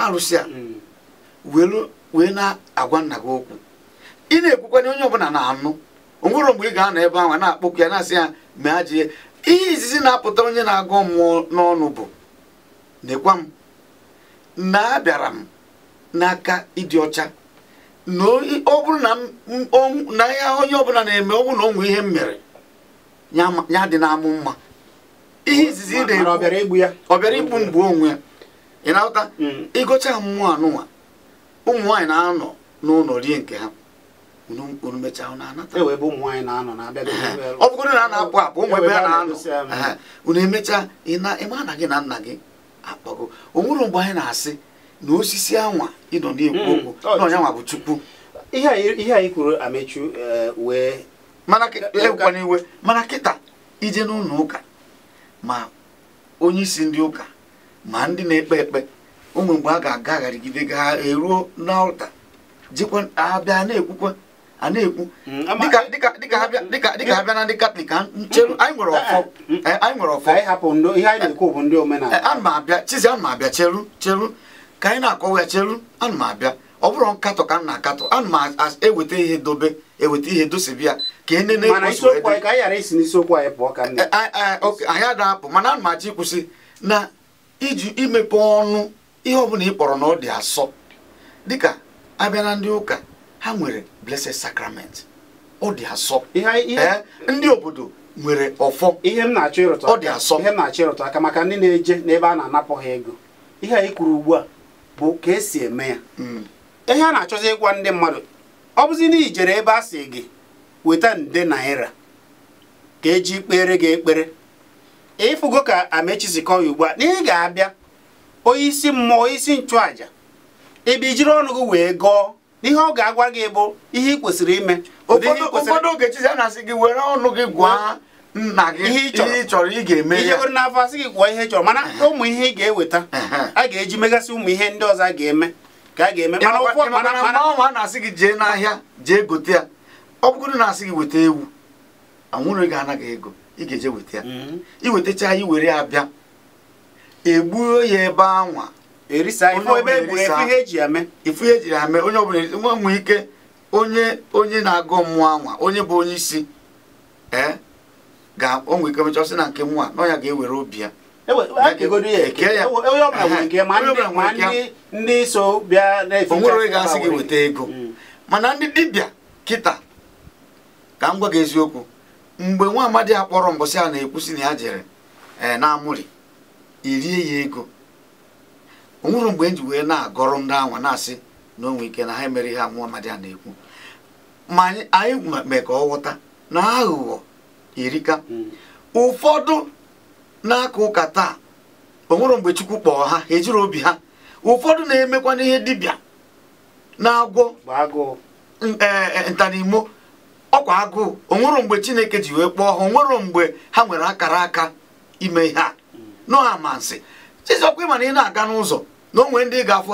arụsị a mm. wee na-agwa nna gị okwu ị na-ekwukwa na onye ọbụla na-anụ onwere mgbe ị ga-anọ ebe ahụ na-akpọkwu ya na-asị ya mee ajie ihe izizi na-apụta onye na-agụ mmụọ n'ọnụ bụ nekwa m na abịara m n'aka ịdị ọcha na ọ bụrụ na ya onye ọbụla na-eme ọ bụrụ na ọnwụ ihe m mere ya dị na-amụ mma ihe izizi ọ bịara igbu mgbu onwe ya ị na-ahụta hmm. ịgụcha mmụọ anụnwa ụmụ na-anọ n'ụlọ rie nke ha unu mechaa unu anata e ọ bụrụ na a na-akpụ akpụ ụmụ ebe a e na-anọ unu emechaa ịma na gị na nna gị akpọgo o nwere mgbe anyị na-asị na osisi anwa ịnọ na-ekwu hmm. okwu na ọnyanwa bụ chukwu ihe anyị kwuru amechu eh, wee mana ekwana iwe mana kịta ije n'ụlọ ụka ma onye isi ndị ụka ma ndị na-ekpe ekpe ụmụ mgbe a ga-agagharịgide ga eruo n'ọlta jikwa abịa na-ekwukwa a na-ekwu mm, e- dịka ha bịa na ndị katọlik mm, mm, eh, anyị nwere ọfọ anyị nwere ọfọ ana abịa chizi anụ m abịa cheru cheru ka anyị na-akọwa ya cheru ana m abịa ọ bụrụ nkatọ ka m na-akatọ ana m eweta ihe dobe eweta ihe dosibi ya ka e nene anyị eh, eh, adapụ mana anụ m achọ ịkwụsị na iji imepe ọnụ ihe ọbụla ị kpọrọ na ọ dị asọ dịka abịa na ndị ụka ha nwere blessed sacrament ọ dị asọ eh, ndị obodo nwere ọfọ ihe m na-achọ ịrụtụ ọ dị asọ ihe m na-achọ ịrụtụ aka maka ndị na-eje n'ebe a na-anapụ ha ego ihe anyị kwuru ugbu a bụ ka esi eme ya hmm. ihe a na-achọzi ịgwa ndị mmadụ ọ bụzi na ijere ebe a sị gị weta nde naira ka eji kpere gị ekpere ịfụgo ka amechi si kọọ ugbu a na ị ga-abịa onye isi mmụọ onye isi nchụaja ịbịa ijiri ọnụ wee gọọ ihe ọ ga-agwa gị bụ ihe ị kwesịrị ime ụfọdụ oge chizi a na-asị gị were ọnụ gị gwa nna gị ihe ị chọrọ ị ga-eme ihe were n'afọ asị gị gwụọ ihe ị chọrọ mana ụmụ ihe ị ga-eweta a ga-eji megasị ụmụ ihe ndị ọzọ a ga-eme ka a ga-eme mana ụfọdụ a na-asị gị jee n'ahịa jee gote ya ọ bụrụ na asị gị weta ewu anwụrụ gị anaghị ego ị ga-eje weta ya mm-hmm. iwetacha ya iwere ya bịa egbuo ya ebe anwa erisa ifu eji onye ọbụla nwa nwee ike onye onye na-agụ mmụọ anwa onye bụ onye isi e, ga onwe ike mechaa sị na nke nwa na ya ga-ewere obi ya onwere e onye gị weta ego mm. mana ndị dibịa kịta ka m gwa gị eziokwu mgbe nwa amadi akpọrọ mbọsị a na-ekwusi na ya jere e, na amụrị irie ya ego o mgbe e ji wee na-agọrọ ndị anwa na-asị na onwe ike na ha emere ihe amụọ amadi a na-ekwu ma anyị mee ka ọ ghọta na aghụghọ erika hmm. ụfọdụ na-aka ụka taa o mgbe chukwu kpọọ ha ejiri obi ha ụfọdụ na-emekwa n'ihe dibịa na-agwọ e, e, ntanimo ọkwa agụụ onwere mgbe chineke ji wee kpọọ ha onwere mgbe ha nwere akara aka ime ihe a hmm. nọ ha ma nsị chizọkwa ịma na ị na-aga n'ụzọ na onwe ndị ga-afụ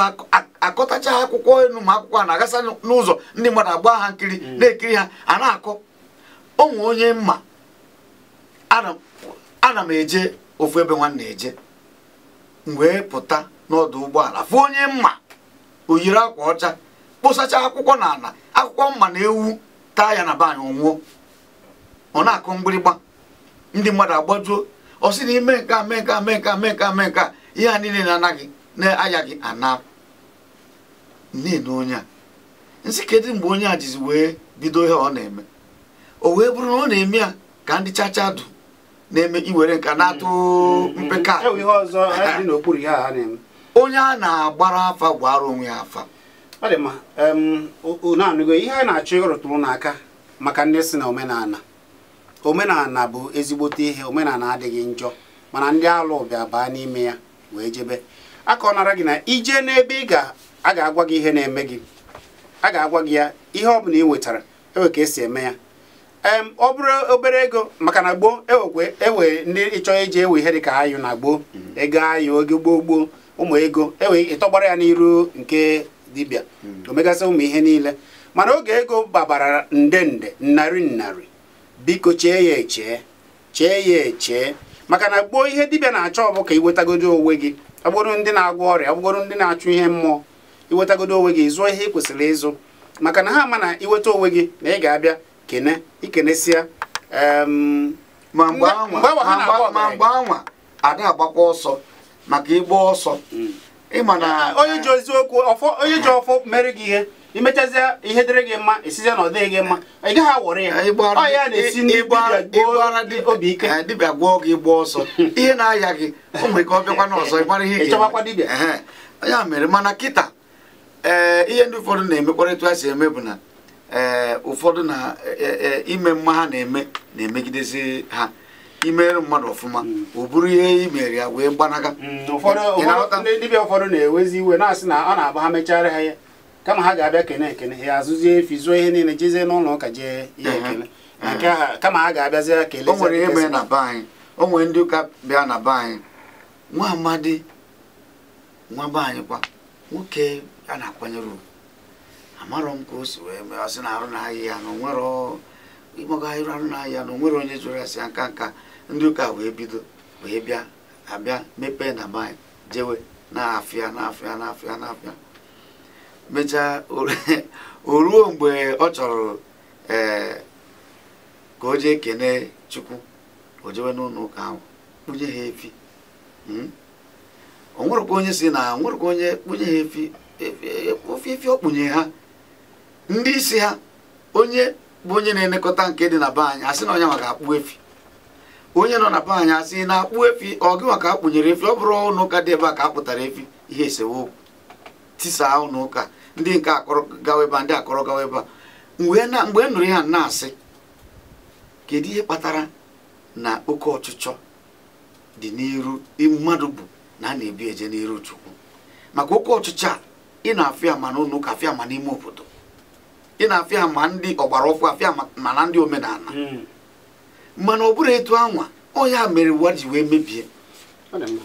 akọtacha akwụkwọ elu ma akwụkwọ a na-agasa n'ụzọ ndị mmadụ agba ha nkiri mm. na-ekiri ha a na-akọ onwe onye mma ana m eje ofu ebe nwanne eje wee pụta n'ọdụ ụgbọala fụ onye mma o yiri akwa ọcha kposacha akwụkwọ n'ala akwụkwọ mma na ewu taa ya na banyị anyị ọnwụọ ọ na-akụ mgbịrịgba ndị mmadụ agbajuo ọ sị na ime nke a mee nke a mee nke a mee nke a mee nke a ihe a niile na-anaghị na-ayaghị ana nne onye a nsị kedu mgbe onye a jizi wee bido ihe ọ na-eme o wee bụrụ na ọ na-eme ya ka ndị chacha dụ na-eme iwere nka na-atụ mm-hmm. mpeka e onye a na-agbara afa gwara onwe ya afa ọ dị mma unu anụgo ihe a na-achọ ịrụtụrụ n'aka maka ndị si na omenala omenala bụ ezigbote ihe omenala adịghị njọ mana ndị alụ bịa baa n'ime ya wee jebe aka ọ nara gị na ije n'ebe ị ga aga agwa gị ihe na-eme gị a ga-agwa gị ya ihe ọ bụla ị wetara ewe ka esi eme ya em ọ bụrụ obere ego maka na gboo ewekwe ewe ndị ịchọ eji ewe ihe dịka ayụ na gboo mhm. ego ayụ oge gboo gboo ụmụ ego ewe ịtọgbara ya n'iru nke dibịa mhm. omegasị ụmụ ihe niile mana oge ego babara nde nde narị narị biko chee ya echee chee ya echee maka na gboo ihe dibịa na-achọ bụ ka iwetagodi onwe gị ọbụrụ ndị na-agwọ ọrịa ọbụrụ ndị na-achụ ihe mmụọ iwetagodo onwe gị zụọ ihe ị kwesịrị ịzụ maka na ha ma na iweta onwe gị na ị ga-abịa kene ikenesịa ma mgbe anwa ada agbakwa ọsọ maka ịgba ọsọ hmm. ịma na onye ji oziokwu onye ji ọfọ mere gị ihe imechazie ihe dịrị gị mma esizie na ọ gị mma ị gaghị awọrị ya ọ ya na-esi n'igbu obi ike eh, dibịa gwọọ gị gbaa ọsọ ihe na-aya gị o nwere ka ọ bịakwa n'ọzọ ịgbara ihe ịchọbakwa dibịa ya mere mana kịta ee eh, ihe ndị ụfọdụ na-emekwarịtụ ha si eme bụ na ee eh, ụfọdụ na ime mma ha na-eme na-emegidezi ha imere mmadụ ọfụma ọ hmm. bụrụ ihe i ya wee gbanaga hmm, ụfọdụ dibịa ụfọdụ na-ewezi iwe na-asị na ọ na-agba ha mechara ha ya kama ha ga-abịa kene ekene ya azụzie efi zụọ ihe niile jezie n'ụlọ ụka jee ihe ekele mhm. mhm. kama ha ga-abịazi kele o nwere ihe mere na be anyị o nwere ndị ụka bịa na be anyị nwa amadi nwa be anyị kwa nwoke a na-akwanyere ugwu amarọ m ka o si wee mee ọsị na arụ na ya na onwere ịgbago ahịrụ arụ na ahịa na onwere onye jụrụ asị ya nka nka ndị ụka wee bido wee bịa abịa mepee na be anyị jewe na afịa na afịa na afịa na afịa mechaa o ruo mgbe ọ chọrọ e, ka o jee kene chukwu o jewe n'ụlọ ụka ahụ kpunye ha efi hmm? o nwerekwa onye si na nwerekwa onye kpunye ha efi ofe ọ okpunye ha ndị isi ha onye bụ onye na-elekọta nke dị na be anyị asị na onye maka akpụ efi onye nọ na be anyị asị na akpụ efi ọ gị maka akpụnyere efi ọ bụrụ ụlọ ụka dị ebe a ka a pụtara efi ihe esewo tisaa ụlọ ụka ndị nke akọrọ gawa ebe ndị akọrọ gawa ebe a mgbe e nụrụ ya na-asị kedu ihe kpatara na oke ọchịchọ dị n'iru mmadụ bụ na a na-ebi eje n'iru chukwu maka oke ọchịchọ a ị na-afịa ma n'ụlọ ụka afịa ma n'ime obodo ị na-afịa ma ndị ọgbara ọfụ afịa ma na ndị omenala hmm. mana ọ bụrụ etu anwa ọ ya mere ụwa ji wee mebie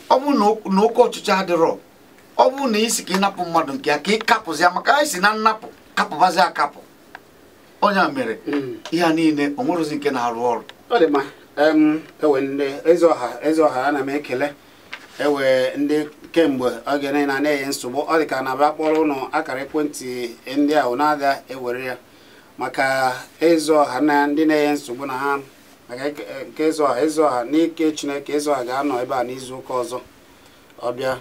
ọ bụrụ na oke ọchịchọ adịrọ ọ bụrụ na isi ka ị napụ mmadụ nke ya ka ị ya maka anyị si na nnapụ kapụbazi akapụ onye a mere hmm. ihe a niile o nwerozi nke na-arụ ọrụ ọ dị mma ewe e ndị eze ọha eze ọha ana m ekele ewe ndị kemgbe oge niile na-enye nsogbu ọ dị ka na abịa kpọrọ ụnụ akara ekwentị ndị ahụ na-ada ewere ya maka eze ọha na ndị na-enye nsogbu na ha maka nke eze ọha eze ọha n'ike chineke eze ọha ga-anọ ebe a n'izu ụka ọzọ ọ bịa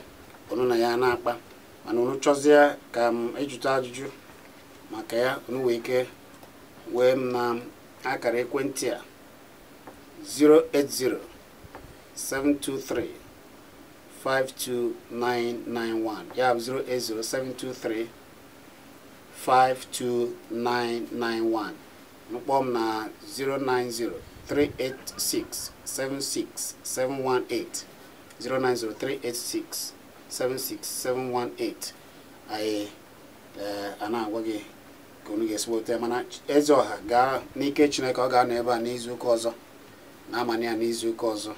onu na ya na-akpa mana unu chọzie ka m ịjụta ajuju maka ya onu wee ike wee m na akara ekwentị a 723 08072352991 ya bụ 08072352991 mkpọọ m na 090 386 76 718 090 386 76718 anyị a agwa gị ka unu ga-esi weta mana eze ọha gaa n'ike chineke ọ ga-anọ ebe a n'izuụka ọzọ na-amanye ya n'izuụka ọzọ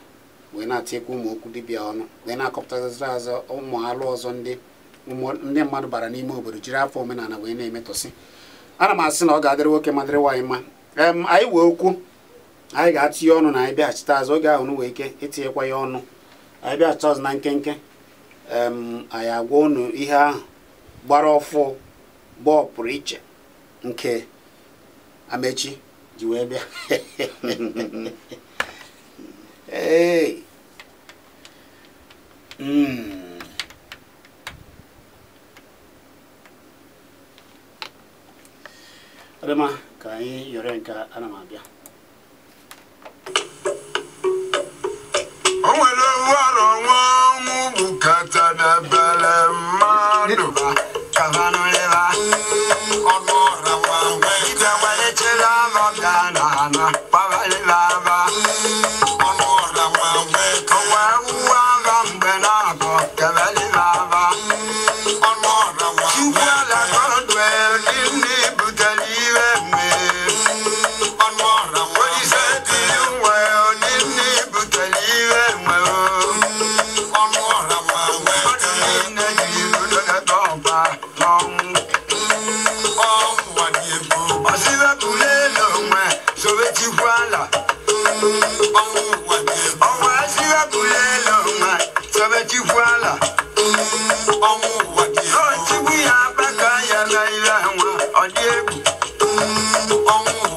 wee na-atinyekwa ụmụ okwu dibịa ọnụ wee na-akọpụtazịra azọ ụmụ alụ ọzọ ndị ndị mmadụ bara n'ime obodo jiri afọ omenala wee na emetụsị ana m asị na ọ ga-adịrị nwoke ma dịrị nwaanyị mma anyị wee okwu anyị ga-atụnye ọnụ na anyị bịaghachite azụ oge ahụ wee ike itinyekwa ya ọnụ anyị bịaghachite ọzọ na nkenke anyị agwa unu ihe ahụ gbara ọfụ gba iche nke amechi ji wee bịa ee hmm. ọdịma ka anyị yọrọ nke ana m abịa o nwere ọrụ ọnwa ọnwụ bụ Pavale ọnwụ ụwa dị egwu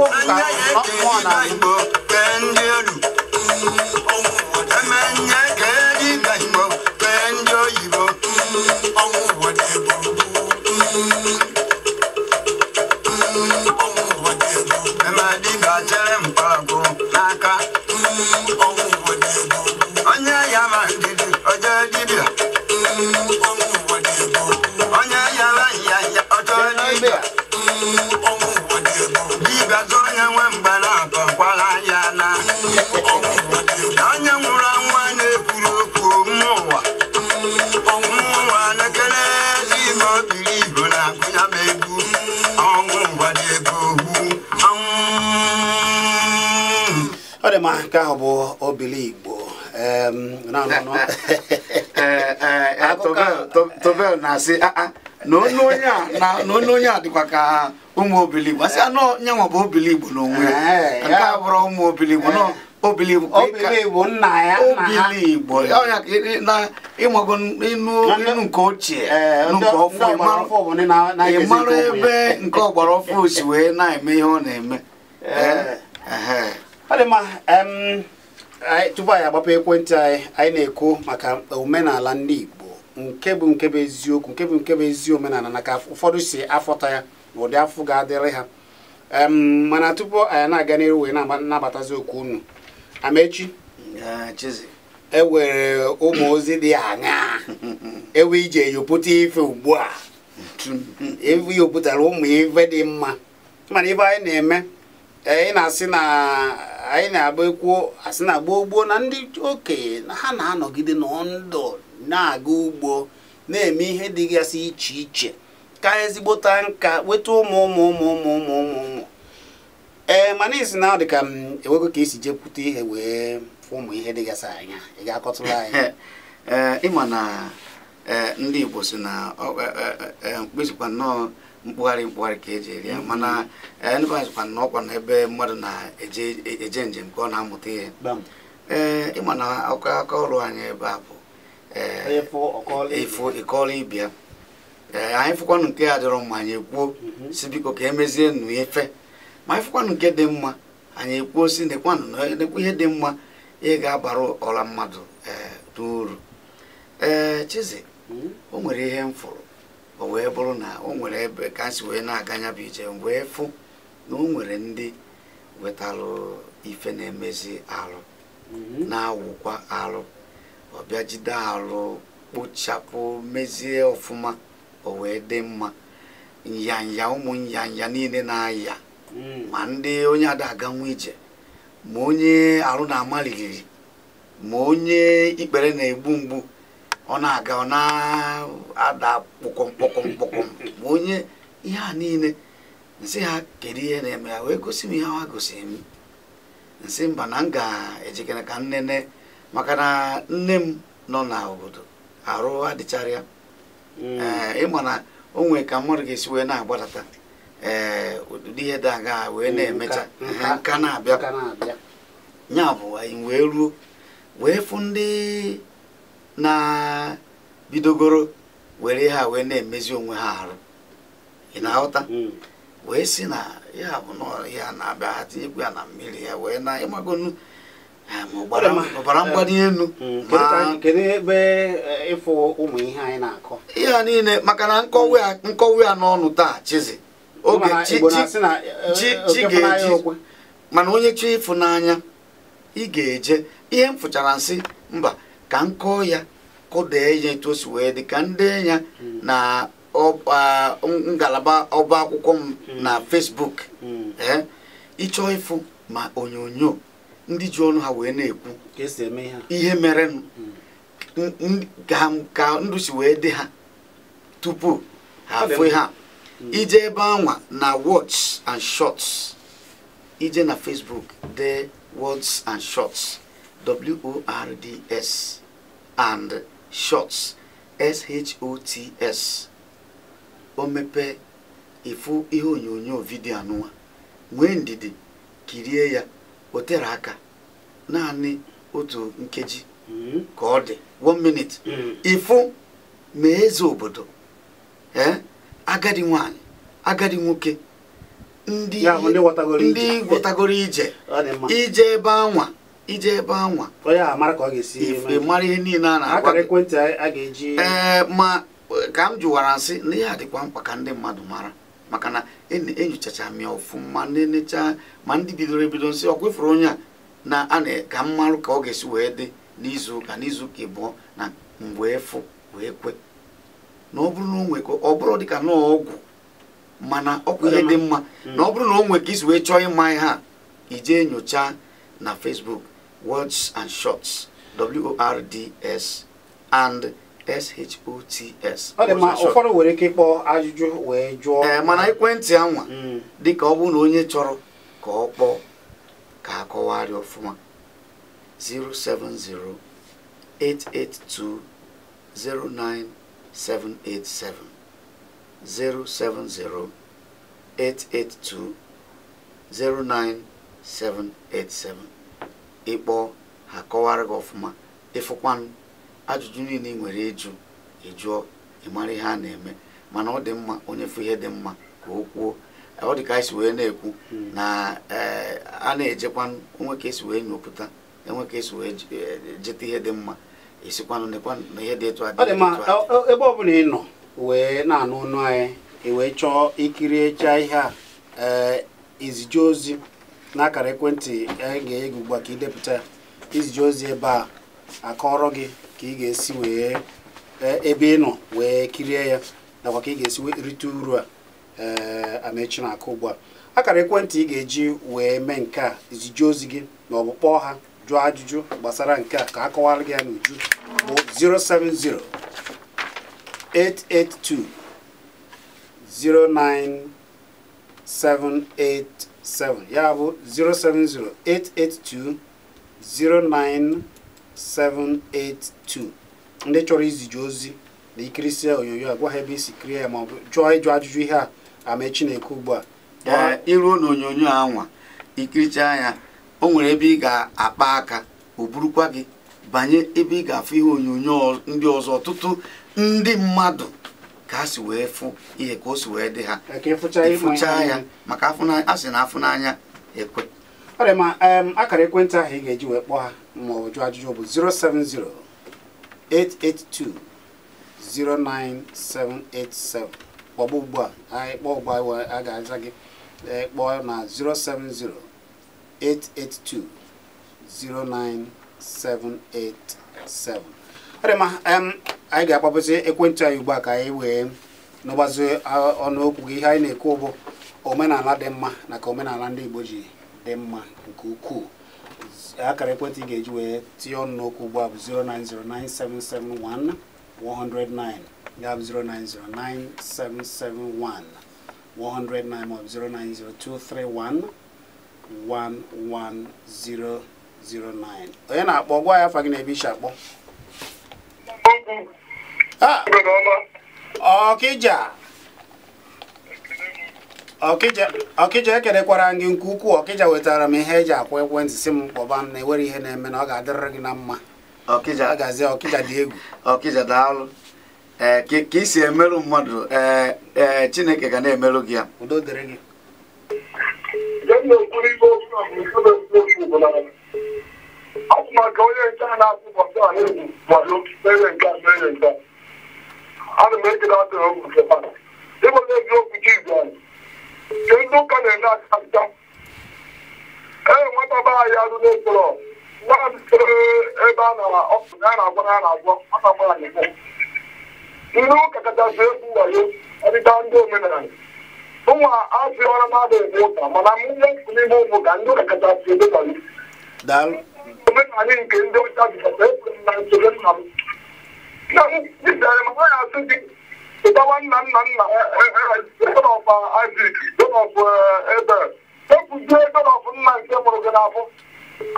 ọkụ ọkụ one na-anyụ ahụ na-asị ah, ah, na onye onye a na onye onye a, dịkwa ka ụmụ obiligbo asị anọ ah, nyanwa bụ Igbo n'onwe ya nke a bụrụ ụmụ obiligbo nọ Obili... Obili Igbo nna ya obiligbo obiligbo ọnya ka na ịmago inu nke ochie nke ọfụ ịmara ebe nke ọgbara ọfụ si wee na-eme ihe ọ na-eme ọ dị mma tupu anyị agbapụ ekwentị anyị anyị na-ekwu maka omenala ndị Igbo nke bụ nke bụ eziokwu nke bụ nke bụ ezi omenala na ka ụfọdụ si afọta ya na ụdị afọ ga-adịrị ha mana tupu anyị na-aga n'iru wee na-abatazi okwu unu amechi e ụmụ ozi dị aṅaa ewe ije yopụta ife ugbu a ewe yopụtara ụmụ ife dị mma mana ife anyị na-eme anyị na-asị na anyị na-agba ekwuo asị na gboo gboo na ndị okenye ha na-anọgide n'ọndụ na-aga ugbo na-eme ihe dịgasị iche iche ka ezigbota nka weta ụmụ ụmụ ụmụ ụmụ ụmụ ụmụ ụmụ ee eh, mana isi na ọ dị ka m enwego ka esi jekwute ihe wee ụmụ ihe dịgasị anya ị ga-akọtụrụ anyị eh, ịma na eh, ndị Igbo si na mkpezikwa nnọọ mkpụgharị mkpụgharị ka eji eri ya mm-hmm. mana ndị azikwa na ọkwa n'ebe mmadụ na-eje njem ka ọ na-amụta ihe ee ịma na akụkọ ọrụ anyị ebe a bụ ịkọọla ibia eh, anyị fụkwanụ nke a dịrọ mma anyị ekwuo mhm. si biko ka emezie nụ efe ma anyị fụkwanụ nke dị mma anyị ekwuo si nekwanụ e nekwa ihe dị mma ihe ga-abara ọla mmadụ n'uru eh, ee eh, Chizzy mhm. o nwere ihe m fụrụ o wee bụrụ na o nwere ebe ka si wee na-aganya bụ ije wee fụ na o nwere ndị wetalụ ife na-emezi alụ mhm. na-awụkwa alụ ọbịa jide arụ kpochapụ mezie ọfụma o wee dị mma nyanya ụmụ nyanya niile na-aya hmm. ma ndị onye ada aganwu ije ma onye arụ na-amaliriri ma onye ikpere na-egbu mgbu ọ na-aga ọ na-ada kpọkọm ma onye ihe a niile nsị ha kedu ihe na-eme ya wee gosi m ihe ha gosiri m nsị mba na m ga-ejikere ka nnene maka na nne m nọ na obodo arụ adịchara ya hmm. eh, ịma na o nwee ka mmadụ ga-esi wee na-agbadata ee eh, ụdị ihe dị wee hmm, na-emecha eh, nka na-abịa ya bụ anyị wee ruo wee fụ ndị na-bidogoro were ha wee na-emezi onwe ha arụ ị na-aghọta hmm. wee si na ya bụ na ya na-abịa ha tinyekwu ya na mmiri ya wee na ịmagonu ọbara mgbali elu hmm, eh, ihe a niile maka na nkọwa ya n'ọnụ taa chizi oge chi eh, eh, ga-eji mana onye chi n'anya, ị ga-eje ihe m fụchara nsị mba ka m kọọ ya kụdee ya etu o si wee dị ka ndị ya hmm. na ngalaba ọba akwụkwọ m hmm. na Facebook chọọ ịfụ ma onyonyo ndị ji ọnụ ha wee na-ekwu ihe mere ka ndụ wee dị ha tupu ha afụ ha hmm. ije ebe anwa na words and shots ije na Facebook dee words and shots w o and shots s o t s mepee ịfụ ihe onyonyo vidio anụwa nwee ndidi kirie ya o tere aka naanị otu nkeji hmm. ka ọ dị one minute ifu, hmm. ma eze obodo ee agadi nwanyị agadi nwoke ndị ndị gwọtagoro ije ije ebe anwa ije ebe anwa ife mara ihe niile a na-agwa ee ma ka m jụwara nsị na ihe a dịkwa mkpa ka ndị mmadụ mara maka na enyochacha m ọfụma na-enecha ma ndị bidoro ebido nsị ọ kwefuru onye a na a ka mmalụ ka ọ ga-esi wee dị n'izu ụka n'izu ụka ịbụọ na mgbe wee kwe na ọ bụrụ na o nwekọ ọ bụrụ dịka na ọgwụ mana ọkwa ihe dị mma mm. na ọ bụrụ na o nwe ka isi wee chọọ ịma ihe a ije nyocha na Facebook words and shots words and shots ọ dị ma ụfọdụ nwere ike ịkpọ ajụjụ wee jụọ ee eh, mana ekwentị anwa hmm. ka ọ bụrụ na onye chọrọ ka ọ kpọọ ka akọwarị ọfụma 070882 09787. ịkpọọ ha kọwara gị ọfụma ịfụkwanụ ajụjụ niile ị nwere ịjụ ịjụọ ịmara ihe a na-eme mana ọ dị mma onye fụ ihe dị mma ka o kwuo ọ dị ka anyị si wee na-ekwu na eh, a na ejekwanụ onwe ka esi wee nyopụta enwe ka esi wee eh, jeta ihe dị mma esikwanụ na ihe dị etu adị dị ebe ọ bụla ị nọ wee na-anụ ọnụ anyị wee chọọ ikiri echa ihe a eh, izije ozi n'akara ekwentị anyị ga-enye gị ugbu a ka idepụta ya izije ozi ebe a akọrọ gị ka ị ga-esi wee eh, ebe ị nọ wee kirie ya nakwa ka ị ga-esi wee rite uru a ee eh, amechi na-akụ ugbu a akara ekwentị ị ga-eji wee mee nke a izije ozi gị ma ọ bụ kpọọ ha jụọ ajụjụ gbasara nke a ka a kọwara gị ya n'uju bụ 070 882 09787 ya bụ 070 882 09 782 ndị chọrọ iziji ozi na ikirisie onyonyo a gwa ha ebe isi kirie ya maọbụ jụọ ịjụ ajụjụ ihe a ama Chineke ugbu a iruo n'onyonyo onyonyo anwa ikirichaa ya o nwere ebe ị ga-akpa aka o burukwa gị banye ebe ị ga-afụ ihe onyonyo ndị ọzọ ọtụtụ ndị mmadụ ka a si wee fụ ihe ka o si wee dị ha ịfụchaa ya maka a sị na afụ n'anya ekwe akara ekwentị ahụ ị ga-eji wee kpọọ ha maọbụ jụọ ajụjụ bụ 070 882 09787 kpọba ugbu a anyị kpọọ ugbu a a ga-aza gị kpọọ na 070 882 09787 ọ dị mma anyị ga-akpọpụsị ekwentị anyị ugbu a ka anyị wee n'ọgbazi ọnụokwu gị ihe anyị na-ekwu bụ omenala dị mma na ka omenala ndị Igbo ji dị mma nke ukwuu akara ekwentị ị ga-eji wee tinye ọnụ n'okwu ugbu a bụ 0909771 ya bụ 0909771 109 maọbụ 09023111009 onye na-akpọ gwa ya afa na ebe isi akpọ ọkịja ọkịja ekenekwara gị nke ukwuu ọkịja wetara m ihe eji akwa ekwentị si m kpọba m na ewere ihe na-eme na ọ ga-adịrịrị gị na mma ọkịja gazie ọkịja dị egwu ọkịja daalụ ee ka isi emerụ mmadụ ee e, chineke ga na-emerụ gị ya udo dịrị gị atụmaka onye nke a na-atụ ụbọchị a na-egwu mana mere nke a mere nke a ana m ekele atụrụ ụmụ nke ịbụ na eziokwu chi Hindu kalenda kanta. Ee nwata ba ya arụ n'okporo nwa m sere ebe a nara ọkụ na a na-agwa na a na-agwọ aka gbara n'ikpo. Ndị ụka kachasị egwu wayo ọdịda ndị omenala. Ụmụ azụ ọrụ mmadụ ebe ụka mana m nwe nkụ n'ime ụmụ ka ndị ụka kachasị ebe wayo. Omenala nke ndị ọcha jikọta ekwuru na nsogbu nna m. Nna m jidere m ha ya asụ gị ụtawa nna nna nna donọf Isaac donọf Ebel ekwuzie nna nke mụrụ gị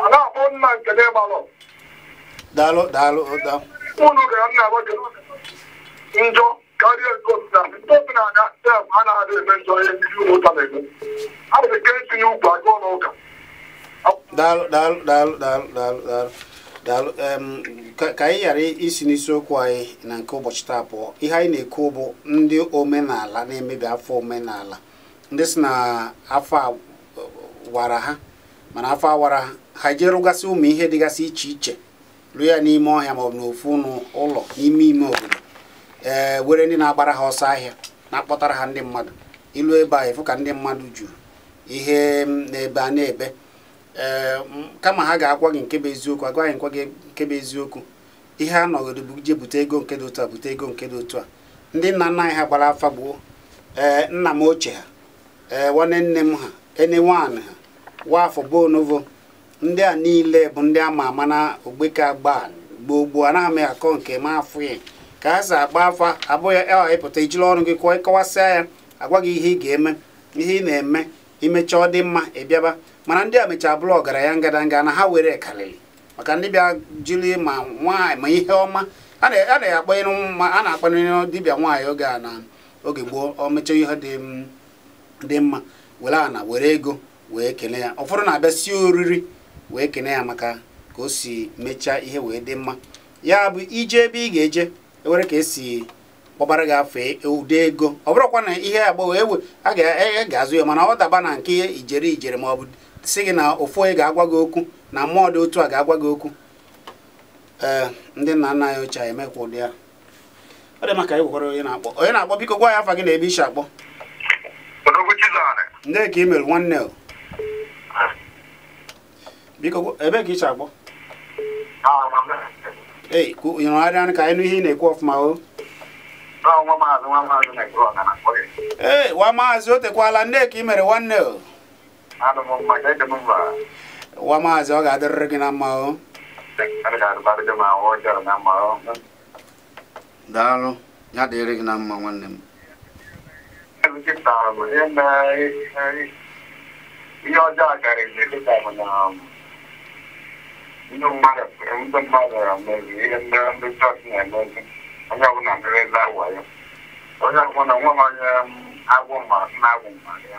a na-akpọ nna nke n'ịgbalọ daalụ daalụ gara nna gị njọ karịa nke osinala ndị osinala sef a na-adị eme njọ ihe ndị a etinye ukwu agụọ n'ụka daalụ daalụ daalụ ka anyị ghara isi n'isiokwu anyị na nke ụbọchị taa pụọ ihe anyị na-ekwu bụ ndị omenala na-emebi afọ omenala ndị si na afọ wara ha mana afọ awara ha jee rụgasị ụmụ ihe dịgasị iche iche rụọ ya n'ime ọhịa maọbụ n'ofu ụlọ n'ime ime obodo ee were ndị na-agbara ha ọsọ ahịa na-akpọtara ha ndị mmadụ ilu ebe a efu ka ndị mmadụ juru ihe na-ebe a na-ebe kama ha ga-agwa gị nke bụ eziokwu agwa gị nkwa gị nke bụ eziokwu ihe a nọgoro bụ je bute ego nke dị otu a bute ego nke dị otu a ndị nna nna anyị ha gbara afa gboo ee nna m ochie ha ee nwanne nne m ha ene nwaanyị ha nwaafọ bonovo ndị a niile bụ ndị ama ama na ogbeke agba gboo gboo anaghị m akọ nke m afụ ya ka ha si agba afa abụghị ịwa ịpụta ijiri ọrụ gị kọwasịa ya agwa gị ihe ị ga-eme ihe ị na-eme imechaa ọ dị mma ịbịaba mana ndị a mechaa bụrụ ya ngadanga na ha were karịrị maka ndị bịa jiri ma nwaanyị ma ihe ọma a na-akpanyere dibịa nwaanyị oge a na oge gboo o mechaa ihe dị mma were ana were ego wee kene ya ụfọdụ na-abịa si oriri wee kene ya maka ka o si mechaa ihe wee dị mma ya bụ ije ebe ị ga-eje ewere ka esi kpọbara gị afọ ụdị e ego ọ bụrụkwa na ihe agbọghọ ewe a e e, ga-azụ ya mana ọ daba na nke ijere ijere ma ọ bụ si gị na ụfụ onye ga-agwa gị okwu na mmụọ dị otu a ga-agwa gị okwu ee ndị nna nna anyị ochie anyị emekwa ụdị ya ọ dị maka ịgwakwara onye na-akpọ onye na-akpọ biko gwa ya afa gị na ebe isi akpọ ndị ka i mere nwanne biko ebe ka isi akpọ ei nyụrụgharịa anyị ka anyị nụ ị na-ekwu ọfụma o ee nwa maazị o tekwala ndị ka i mere nwanne o wa maazị ọ ga-adịrịrị gị na mma o daalụ ya dịrị gị na mma nwanne m ihe ọjọọ na ndị mmadụ na ihe ndị ndị chọọchị na-emezi onye ọbụla merezi awa ya onye ọbụla nwa m onye agwụ na agwụ mmadụ ya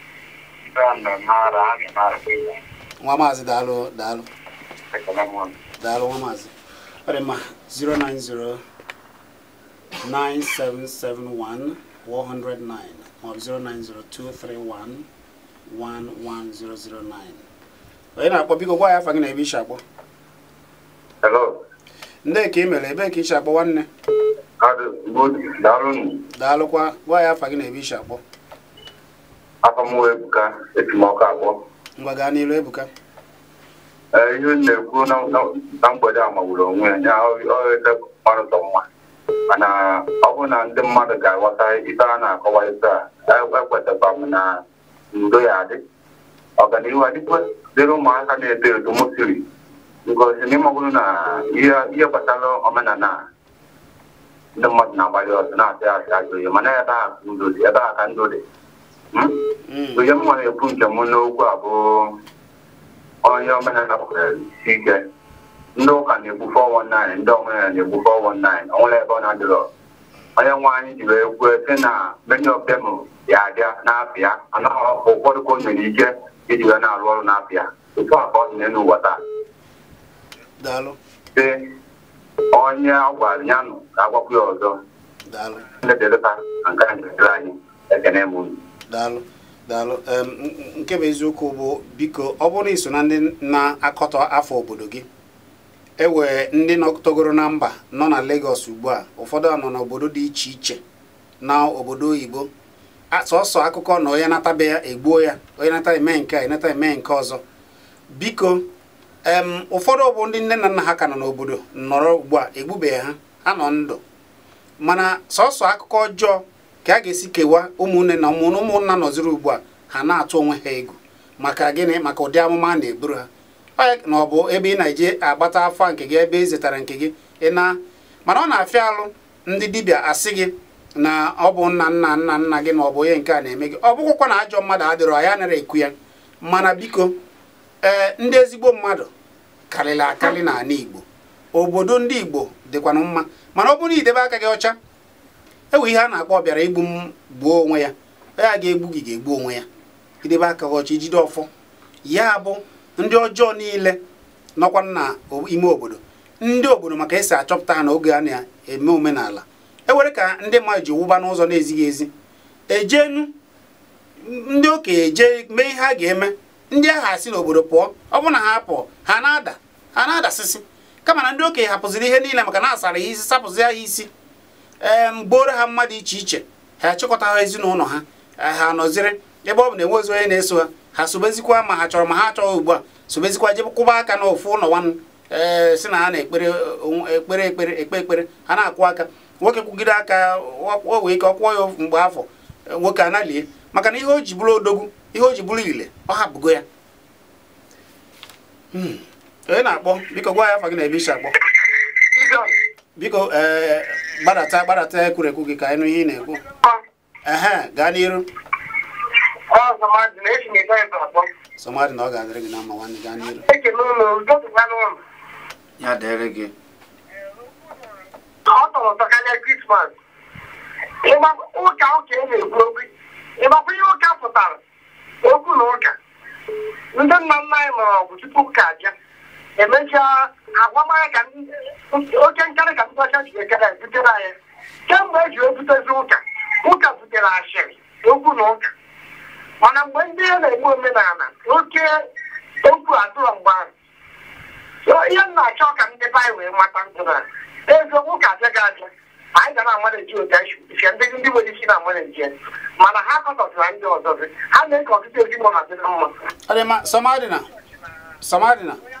nwa maazị daalụ daalụ daalụ nwa maazị ọ dị 090 9771 109 maọbụ 090 231 onye na-akpọ biko gwa ya afa gị na ebe ishi akpọ ndị ka ị mere ebe ka ishi akpọ nwanne daalụkwa gwa ya afa gị na ebe ishi akpọ afọmụwa ebuka etimọkụ abụọ ebuka e, ihe na-ekwu na mgbede a magburu onwe ya ọrịta ọrụtọ e, e, mma mana ọ bụrụ na ndị mmadụ ga-aghọta ife a na-akọwa ife a ekwetakwa m na ndo ya adị ọganihu adịkwa dịrị ụmụaka na-eto eto m siri na n'ịmagoro na ihe gbasara omenala ndị mmadụ na-agbalị ọzọ na-atị asị ajụ mana ebe a ka ndo dị onye mma na-ekwu njem n'okwu a bụ onye omenala kwere ike ndị ụka na-ekwu 419 ndị omenala na-ekwu 419 onwere ebe ọ na-adịrọ onye nwe anyị ji wee kwuo sị na many of them ya abịa n'afịa ụfọdụ ka o nyere ike iji ya na-arụ ọrụ n'afịa otu a ka ọ n'ụwa taa dị onye a ya nụ ka agwakwu ya ọzọ ndị dịrịta lụta na nke anyị ekele m unu daalụ daalụ nke bụ eziokwu bụ biko ọ bụrụ iso na ndị na-akọtọ afọ obodo gị ewee ndị nọtogoro na mba nọ na Lagos ugbu a ụfọdụ nọ n'obodo dị iche iche na obodo oyibo sọsọ akụkọ na onye natabe ya egbuo ya onye nata eme nke a enata eme nke ọzọ biko ụfọdụ bụ ndị nne na nna ha ka nọ n'obodo nọrọ ugbu a egbubeghị ha ha nọ ndụ mana sọsọ akụkọ ọjọọ ka a ga-esi kewa ụmụnne na ụmụnna nọziri ugbu a ha na-atụ onwe ha ego maka gịnị maka ụdị amụma a na-eburu ha na ọ bụ ebe ị na-eje agbata afọ nke gị ebe ị zetara nke gị ịna mana ọ na-afịa alụ ndị dibịa asị gị na ọ bụ nna nna nna nna gị na ọ bụ onye nke a na-eme gị ọ bụkwụkwa na ajọ mmadụ adịrọ anyị nara ekwu ya mana biko ee ndị ezigbo mmadụ karịrị akarị n'ala Igbo obodo ndị Igbo dịkwanụ mma mana ọ bụrụ idebe aka gị ọcha enwe ihe a na-akpọ igbu m gbuo onwe ya ya ga-egbu gị ga-egbu onwe ya idebe aka ọchị jide ọfọ ya bụ ndị ọjọọ niile nọkwa na ime obodo ndị obodo maka esi achọpụta ha na oge a na-eme omenala ewere ka ndị mmadụ ji wụba n'ụzọ na-ezighị ezi ejenu ndị okenye jee mee ihe a ga-eme ndị agha asị n'obodo pụọ ọ bụrụ na ha pụọ ha na-ada ha na-adasịsị kama na ndị okenye hapụziri ihe niile maka na asara ihe isi sapụzi ya isi ee ha mmadụ iche iche ha achịkọta ha ezinụlọ ha ha nọziri ebe ọ bụ na enwezi onye na-eso ha ha sobezikwa ma ha chọrọ ma ha chọghị ugbu a sobezikwa jebe kwụba aka na ụlọ nwanne ee si na ha na-ekpere ekpere ekpere ekpe ekpere ha na-akwụ aka nwoke kwugide aka o wee ike ọ kwụọ ya mgbe afọ e, nwoke analie maka na ihe o ji bụrụ odogwu ihe o ji bụrụ ile ọ hapụgo ya hmm. onye na-akpọ biko gwa ya afọ gị na ebe isi akpọ biko gbadata eh, gbadata eh, ekwurekwu gị ka anyị nụ ihe ị na-ekwu gaa n'iru somadị na ọ ga-adịrị gị na mma nwanne gaa n'iru ya dịrị gị ọ tọrọ ụtọ krismas ụka ụka e na-ekwu okwu ịgbakwa ihe ụka pụtara okwu na ụka ndị nna nna anyị mara ọgwụ tupu ụka abịa emechaa agwamara ka oke nkarị ka mgbasa ji ekere ebutere anyị kemgbe eji ebutezi ụka ụka butere asịrị okwu na ụka mana mgbe ndị ya na-eme omenala oke okwu atụrụ mgbe ahụ ihe m na-achọ ka ndị baị wee mata ndụra eziokwu ka abịa ga abịa anyị ga na-amaliji ụdaife ndị ndị nwere isi na-amaliji mana ha kọtọtara ndị ọzọzi ha na-eke ọtụtụ ezinụlọ dị na mma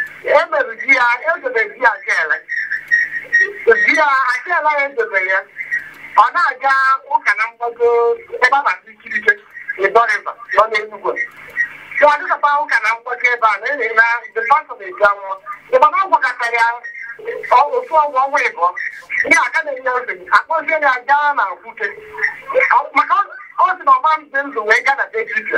emere di ya edobe di ya achele di ya achele ya edobe ya ọ na-aga ụka na mgbago ebe a na-asị ikirike ịdọrịba nọ n'enugwe Ka ọ dịkapa ụka na mgbago ebe a na-ere na depasọ na-eji anwụọ ịgba na ọgwakọta ya otu ọgwụ ọnwa ịbụọ ihe aka na-enye okenye akpọzie ya gaa na nkwute maka ọ sị na ọma ndị ndụ wee gaa na dejike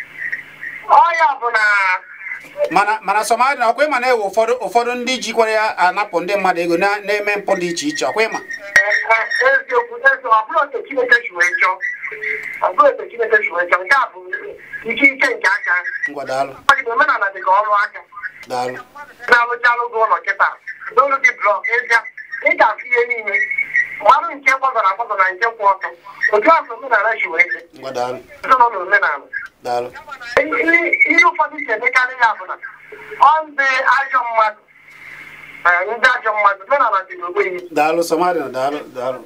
ọya ọbụla mana mana sọmadị na ọkwa ịma na-ewe ụfọdụ ụfọdụ ndị jikwara ya anapụ ndị mmadụ ego na-eme mpụ dị iche iche ọkwa ịma e, eziokwu e, eziokwu ọ otu ọ otu nke a bụ ike ike nke ọrụ aka ụlọ kịta ga ihe niile mmanụ nke kwazara akwazọ na nke kwụ ọtọ otu afọ omenala ji wee ezinụlọ omenala ihe ụfọdụ si emekarị ya bụ na ọ ndị ajọ mmadụ ndị ajọ mmadụ omenala dị n'ogbenye daalụ somalia daalụ daalụ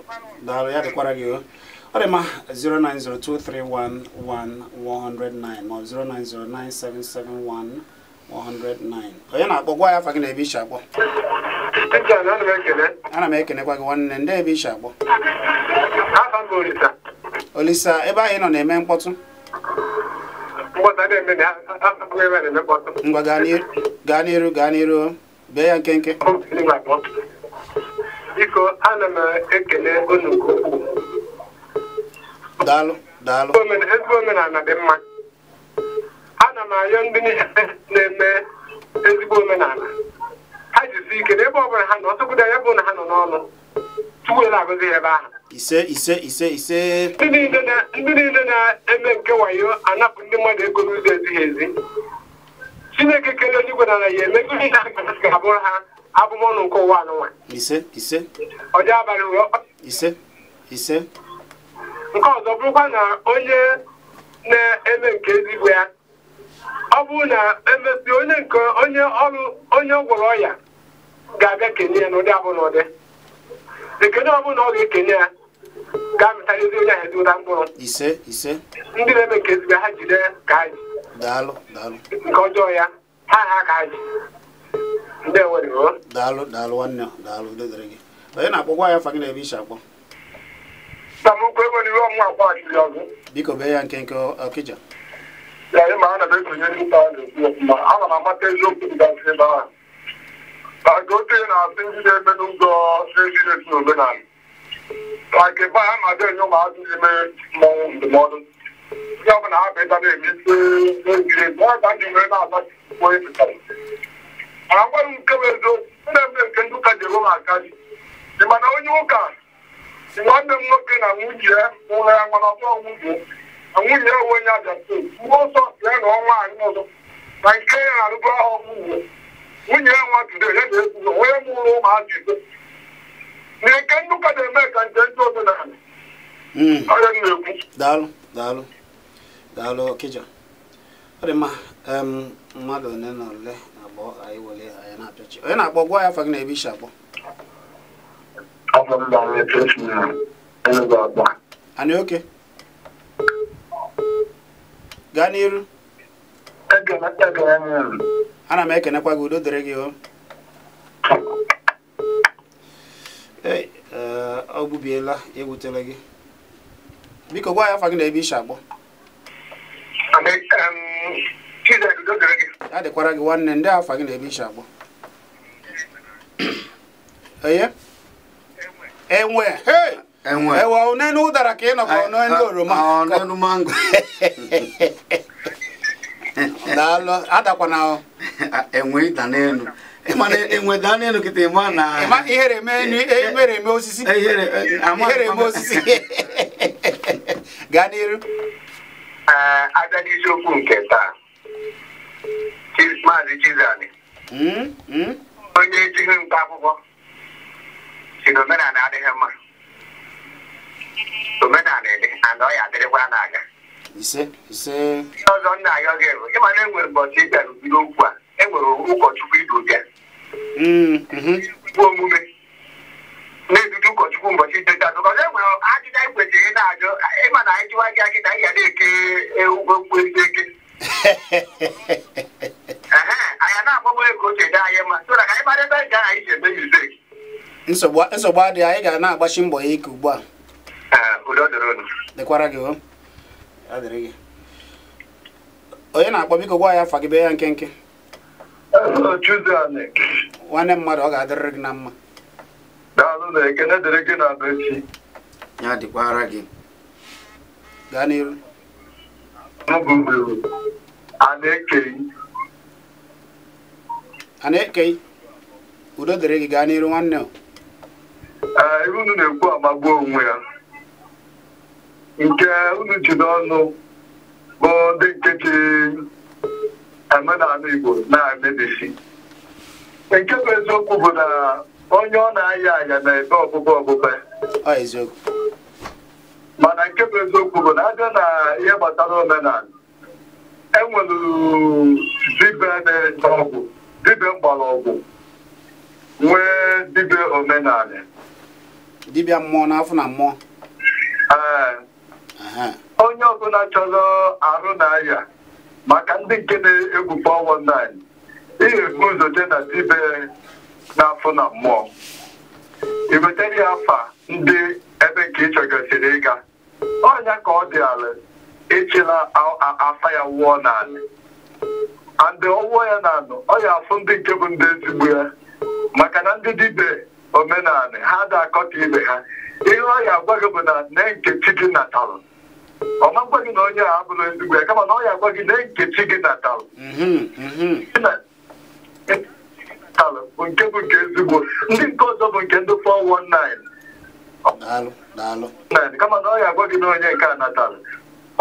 daalụ ya dịkwara gị o ọ dị ma 0902311 109 ma ọ bụ 0909771 109 onye na-akpọ gwa ya afa gị na ebe isi akpọ ana m ekenekwa gị nwanne ndị ebe isi akpọ olisa ebe ahụ ị nọ na-eme mkpọtụ ngwa gaa n'iru gaa n'iru bee ya nkenke biko ana m ekele unu nke ukwuu daalụ daalụ ezigbo omenala dị mma ana m arịọ ndị na-eme ezigbo omenala ha jisi ike na ebe ọ bụla ha nọ ọtụkwụdo ya bụ na ha nọ n'ọnụ tupu ele agụzi ebe ahụ ise ise ise ise ndị niile na-eme nke wayo anapụ ndị mmadụ ego n'ụzọ ezighị ezi chineke kere onye igwe nala ya eme ihe ga-abụrụ ha abụmọnụ nke ụwa anụnwa ọjọ abalị nke ọzọ bụrụkwa na onye na-eme nke ezigbo ya ọ bụrụ na emesi onye nke onye ọrụ onye gwọrọ ọya ga-abịa kenye ya n'ụdị abụ n'ụdị na ọ bụrụ na ọ ga-ekenye ya ga-amịtara ezi onye ahụ ụda mkpụrụ ndị na-eme nke ezigbo ha jide ka ha ji nke ọjọọ ya ha ha ka ha ji ndị eweriro daalụ daalụ nwanne daalụ dedere gị onye na-akpọkwa ya fagị na-ebe iche akpọ samokwu ego n'iru ọmụ akwa ọchịrị ọzọ biko bee ya nkenke ọkịja ee ma ana m esonye ndị ụka na-esi ọfụma ma m amata eziokwu dịgasị ebe ahụ maka okenye na-asị ndị na-eme n'ụzọ na esi omenala ka ebe a na-abịa enye ụmụazị mmọnwụ ndụmọdụ ndị ọ na bụ na-eme isi eziri ezi ọ ga ndị nwere na nke bụ eziokwu ndị eme nke ewe m aka ji dị mana onye ụka nwanne m nwoke na nwunye ya ụlọ ya nwere ọkpọ nwunye na nwunye onwe ya bịa mgbe ọsọ na ọnwa anyị ọzọ na nke ya na-arụbu ahụ uwe nwunye ya nwa tudo ya na-ekwugo onye mụrụ ụmụazị na nke nnukwu na-eme ka nje ndị omenala hmm. ọrịa na-ekwu daalụ daalụ daalụ ọ dị mma mmadụ ole na ole na-akpọ anyị anyị na onye akpọ gwa ya na-ebe isi akpọ gaa n'iru ana m ekenekwa gị udo dịrị gị o eh, ọ gbubiela ewutela gị biko gwa ya afa gị na ebe ishi akpọ a dịkwara gị nwanne ndị afa gị na ebe ishi akpọ enwe hey! enwe ewe ọnụnụ ụdara ka ị nọkwa ọnụnụ oroma ọnụnụ mango daalụ adakwana enwe ịda n'elu na enwe daa n'elu kịta ịma na ihere eme e, ihere eme osisi ihere eme e, osisi gaa n'iru abịaghị isiokwu nke taa maazị chizani hmm? Hmm? onye ejighị nta akwụkwọ si na adịghị mma omenala ede, and ọ ya adịrịkwa na-aga ihe ọzọ nna ya oge bụ ịma na enwere mbọchị ịbịara okwu a enwere ụkọchukwu idu ụbịa hmm, mhm. omume na-edudu ụkọchukwu mbọchị ideta enwere ajụjụ anyị kwesịrị na-ajụ ịma na anyị jụwa gị akịta anyị ga na-eke ụgwọ mkpu ezi eke na-agbagbo ego oche dị anyị mma so na ka anyị mara ebe anyị ga anyị si eme nsogbu adịghị na-agbachi mbọ ya ike ugbu a Ah, udo oh. dịrị unu dịkwara onye na-akpọ biko gwa ya afa gị bee ya nkenke oh, nwanne mmadụ ọ ga-adịrịrị gị na mma ya dịkwara gị gaa n'iru a na-ekei udo dịrị gị gaa n'iru nwanne ah, ebe unu na-ekwu amagbuo onwe ya nke unu ji n'ọnụ bụ ndị nke ji Igbo na-emebisi nke bụ eziokwu bụ na onye ọ na-aya aya na-ebe ọbụbe ọbụbe mana nke bụ eziokwu bụ na abịa na ihe gbasara omenala enwere dibịa na-ete ọgwụ dibịa ọgwụ, nwee dibịa omenala dibịa mmụọ n'afọ na mmụọ ee onye ọbụla chọrọ arụ na maka ndị nke na-egwu 419 ihe ebu ụzọ na dibe na-afụ na mmụọ ị wetara ya afa ndị ebe nke ị chọgasịrị ịga ọnya ka ọ dị ala echela afa ya wụọ n'ala andị ọwụọ ya na anụ ọ ya afụ ndị nke bụ ndị ezigbo ya maka na ndị dibe omenala ha da akọta ibe ha ihe ọ ya agwa bụ na nne nke chi gị natara ọ makwa gị na onye a abụrụ ezigbo ya kama na ọ ya agwa gị na nkechi gị natalụ mhm, mhm. nke bụ nke ezigbo ndị nke ọzọ bụ nke ndị 419 kama na ọ ya agwa gị na onye nke a natalụ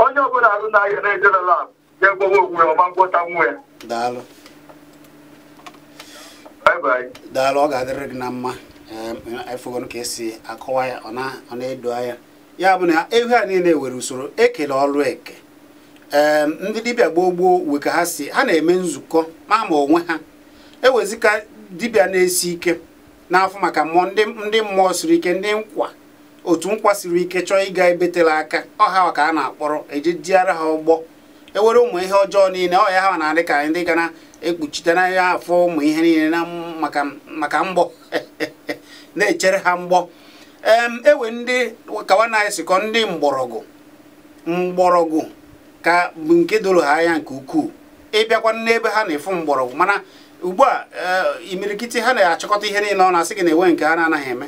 onye ọbụla arụ na-ahịa na-ejere lab ya egbowe onwe ya ọma ngwọta nwa ya daalụ ọ ga-adịrị gị na mma efugon ka esi akọwa ya ọ na-edo anya ya bụ na ehi a niile were usoro ekele ọrụ eke ee ndị dibịa gboo gboo ka ha si ha na-eme nzukọ ma ma onwe ha ewezika dibịa na-esi ike n'afọ maka mmụọ ndị mmụọ siri ike ndị nkwa otu nkwa siri ike chọọ ịga ebetela aka ọha ka a na-akpọrọ eji diara ha ụgbọ ewere ụmụ ihe ọjọọ niile ọ ya ha na-adị ka ndị ga na-ekpuchite na ya afọ ụmụ ihe niile maka mgbọ na-echere ha mgbọ ewe ndị kawa na esikọ ndị mgbọrọgwụ mgbọrọgwụ ka bụ nke doro ha anya nke ukwuu ịbịakwa n'ebe ha na-efu mgbọrọgwụ mana ugbu a eh, imirikiti ha na-achịkọta ihe niile ọ na-asị gị na enwe nke ha na-anaghị eme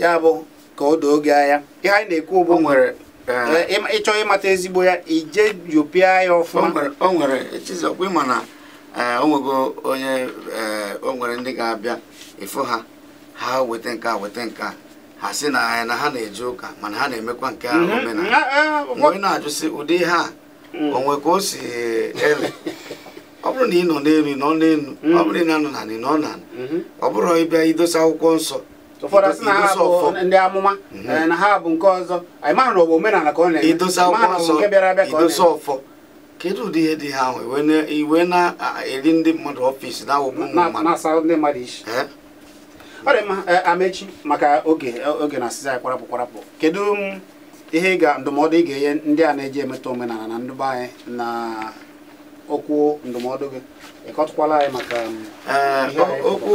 ya bụ ka o doo gị anya ihe anyị na-ekwu bụ nwere eh, eh, ịchọ ịmata ezigbo ya ije yopịa ya ọfụma o nwere chizọkwa ịma na o nwego onye o nwere ndị ga-abịa ịfụ ha ha weta nke a weta nke a ha si na anya na ha na-eje ụka mana ha na-emekwa nke a mhm. omenala onye na-ajụsị ụdị ihe a mm. onwe ka o si ele ọ bụrụ na ị nọ n'elu nọ n'elu mm. ọ bụrụ na ị nọ n'anị nọ n'anị ọ bụrụ ịbịa idosa akwụkwọ nsọ ụfọdụ sị na ha bụ ndị amụma mhm. eh, na ha bụ nke ọzọ anyị mara na ọ bụ omenala ka ọ na-eme idosa akwụkwọ nsọ idosa ọfọ kedu ụdị ihe dị ha ahụ iwe na-eri ndị mmadụ ọfịs na-awụgbu ụmụ mmadụ ọ dị mma eh, amechi maka oge oge na asịza ya kwarapụ kwarapụ kedu mm, ihe ga ndụmọdụ ị ga-enye ndị a na-eji emeta omenala na ndụba anyị na okwu ndụmọdụ gị ịkọtụkwala anyị maka mm, eh, okwu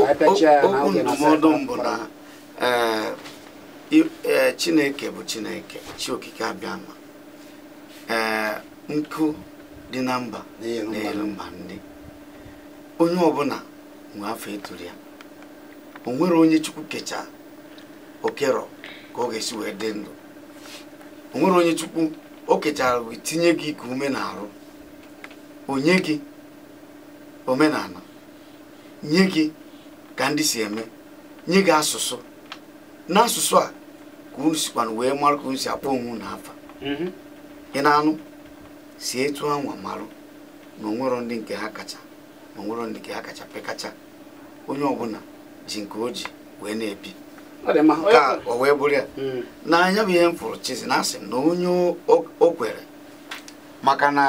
ndụmọdụ mbụ na eh, chineke bụ chineke chi okike abịama nkụ dị na mba na elu mba ndị onye ọbụla nwe afọ eturu ya onwere onye chukwu kecha okerọ ka ọ ga-esi wee dị ndụ onwere onye chukwu o kechara wee tinye gị ka ume na-arụ onye gị omenala nye gị ka ndị si eme nye gị asụsụ n'asụsụ a ka unu sikwana wee mara ka unu si akpọ onwe na afa mm-hmm. ị na-anụ si etu anwa marụ na onwero ndị nke ha kacha na onwero ndị nke ha kacha pekacha onye ọbụla ji nke o ji wee na-ebi ka o wee bụrụ ya hmm. n'anya bụ ihe m fụrụ chizi na asị na onye o kwere maka na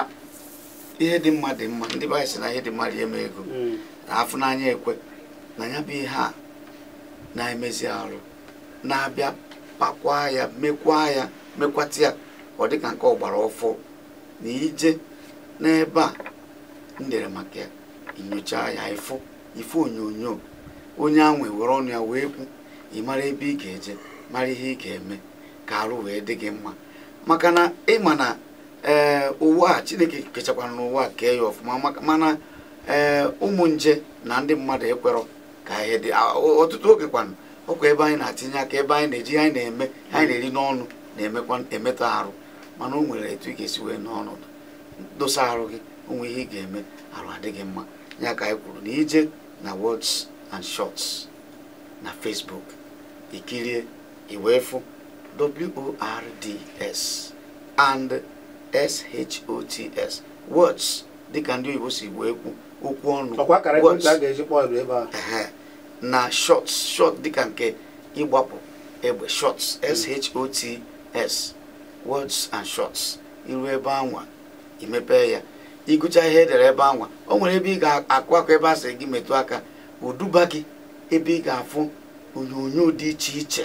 ihe dị mma dị mma ndị baanyị si na ihe dị mma dị eme ego hmm. na afụ n'anya ekwe na ya bụ ihe a na-emezi arụ na-abịa pakwa ya mekwa ya mekwata ya ọ dịka ka nke ọgbara ọfọ na ije n'ebe a m dere maka ya nyocha ya ifo onyonyo onye anwe were ọnụ ya wee kwu ị mara ebe ị ga-eje mara ihe ị ga-eme ka arụ wee dị gị mma maka na ma na ee eh, ụwa a chineke kechakwara n'ụwa kee ya ọfụma mana ee eh, ụmụ nje na ndị mmadụ ekwerọ ka ihe dị ọtụtụ oge kwanụ ọkwa ebe anyị na-atinye aka ebe anyị na-eji anyị na-eme anyị na-eri n'ọnụ na-emekwa emetọ arụ mana o nwere etu ị ga-esi wee n'ọnọdụ dosa arụ gị onwe ihe ị ga-eme arụ adịghị mma ya ka anyị kwuru na ije na wọds and shorts na facebook ikirie iwefu words and shots words dịka ndị oyibo si wee kwu okwu ọnụ na shots shots dịka nke ịgbapụ egbe shots shots words and shots iru ebe anwa imepe ya ịgụcha ihe edere ebe anwa o nwere ebe ị ga-akụ akụ ebe a sị gị metụ aka oduba gị ebe ị ga-afụ onyonyo dị iche iche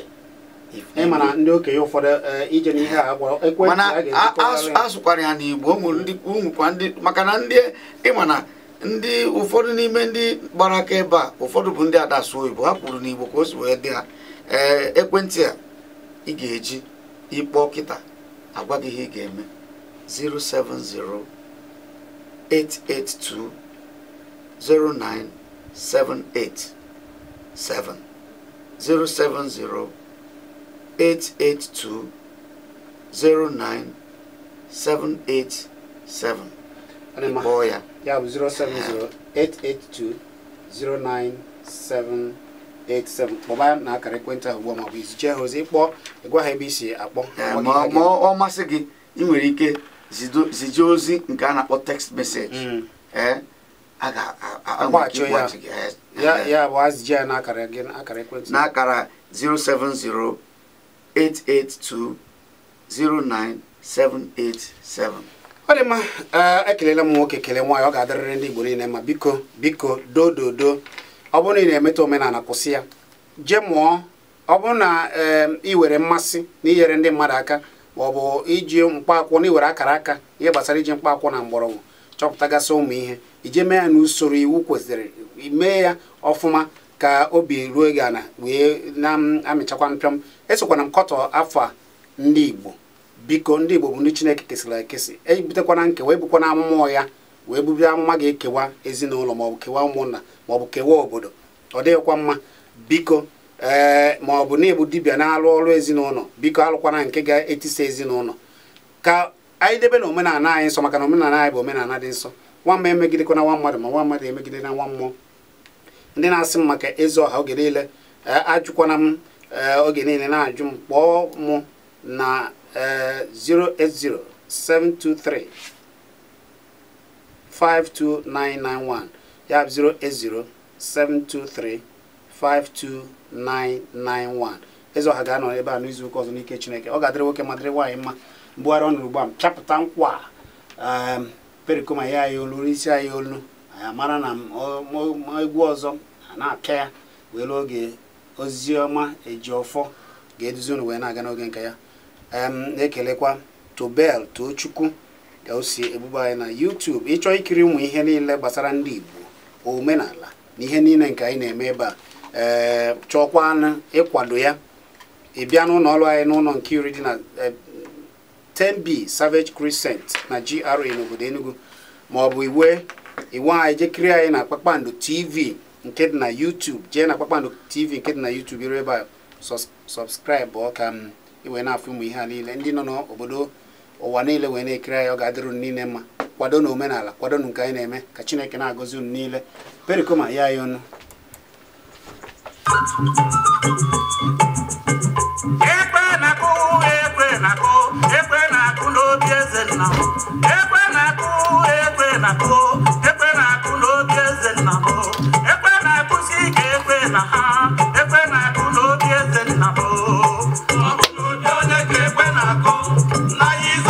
mana ndị okenye ụfọdụ eh, ije n'ihe mana asụkwara ya n'Igbo ụmụkwa ndị maka na ndị ịma na ndị ụfọdụ n'ime ndị gbara aka ebe a ụfọdụ bụ ndị ada oyibo ha kwuru n'Igbo ka o si wee dị ha ee eh, ekwentị a ị ga-eji ịkpọ kịta agwa gị ihe ị ga-eme 070 882 09 seven eight seven zero seven zero eight eight two zero nine seven eight seven. Iboya. Yeah, zero seven zero eight eight two zero nine seven. 87 kpọba na akara ekwentị ahụ ugbu a ma ọ bụ iziche ha ozi ịkpọ ịgwa e ha ebe isi akpọ ma ọ masị gị ị nwere ike zije ozi nke text message mm. eh? a ga-agbachi gị ya bụ azịji ya n'akara gị akara 882 n'akara 07088209787 ọ dị mma ekelela m nwoke kele nwaanyị ọ ga-adịrịrị ndị Igbo niile ma biko biko dododo ọ bụrụ na ị na-emetụ omenala kwụsị ya jee mụọ ọ bụrụ na ị were mmasị na inyere ndị mmadụ aka ma ọ bụ iji mkpaakwụkwọ na iwere akara aka ihe gbasara iji mkpaakwụkwọ na mgbọrọgwụ chọpụtagasị ụmụ ihe ije mee ya n'usoro iwu kwesịrị mee ya ọfụma ka obi ruo gị ala wee na-amịchakwa mpịọm esokwana m kọtọ afọ a ndị Igbo biko ndị Igbo bụ ndị Chineke kesịrị ekesị ebutekwana nkewa ebukwana amụma ya wee bubie amụma ga-ekewa ezinụlọ maọbụ kewa ụmụnna maọbụ kewa obodo ọ dịghịkwa mma biko ee maọbụ na ịbụ dibịa na-alụ ọrụ ezinụlọ biko alụkwana nke ga-etisa ezinụlọ ka anyị debe na omenala anyị nsọ maka na omenala anyị bụ omenala dị nsọ nwa mma emegidekwana nwa mmadụ ma nwa mmadụ emegide na nwa mmụọ ndị na-asị m maka ezi ọha oge niile eh, ajụkwana m eh, oge niile na-ajụ m kpọọ mụ na 080 eh, 723 ya bụ 080 723 ezi ọha ga-anọ ebe a n'izu ụka ọzọ n'ike Chineke ọ ga-adịrị nwoke ma dịrị nwaanyị mma mgbugharị ọnụ ugbu a m pịapụta nkwa perikoma ya ayolu isi olu ya mara na egwu ọzọ a na-aka ya wee lụọ oge oziọma eji ọfọ ga-eduzi unu wee na-aga n'oge nke ya na-ekelekwa tobel tochukwu ka o si anyị na YouTube ịchọ ikiri ụmụ ihe niile gbasara ndị Igbo omenala na ihe niile nke anyị na-eme ebe a ee chọọkwanụ ịkwado ya ịbịa n'ụlọ ọrụ anyị n'ụlọ iri dị na 10b Savage Crescent na GRA n'obodo Enugu maọbụ bụ iwe iwe anyị jekiri anyị na Kpakpando TV nke dị na YouTube jee na Kpakpando TV nke dị na YouTube iru ebe a sọbskraibụ ọ ka iwe na-afụ ụmụ ihe a niile ndị nọ n'obodo ụwa niile wee na-ekiri anyị ọ ga-adịrụ niile mma kwado na omenala kwado na nke anyị na-eme ka Chineke na-agọzi unu niile perikoma ya anyị ọnụ na-akụ ekwe na na n'obi eze nna m ekwe na ka ekwe na ha na-akụ n'obi eze nna na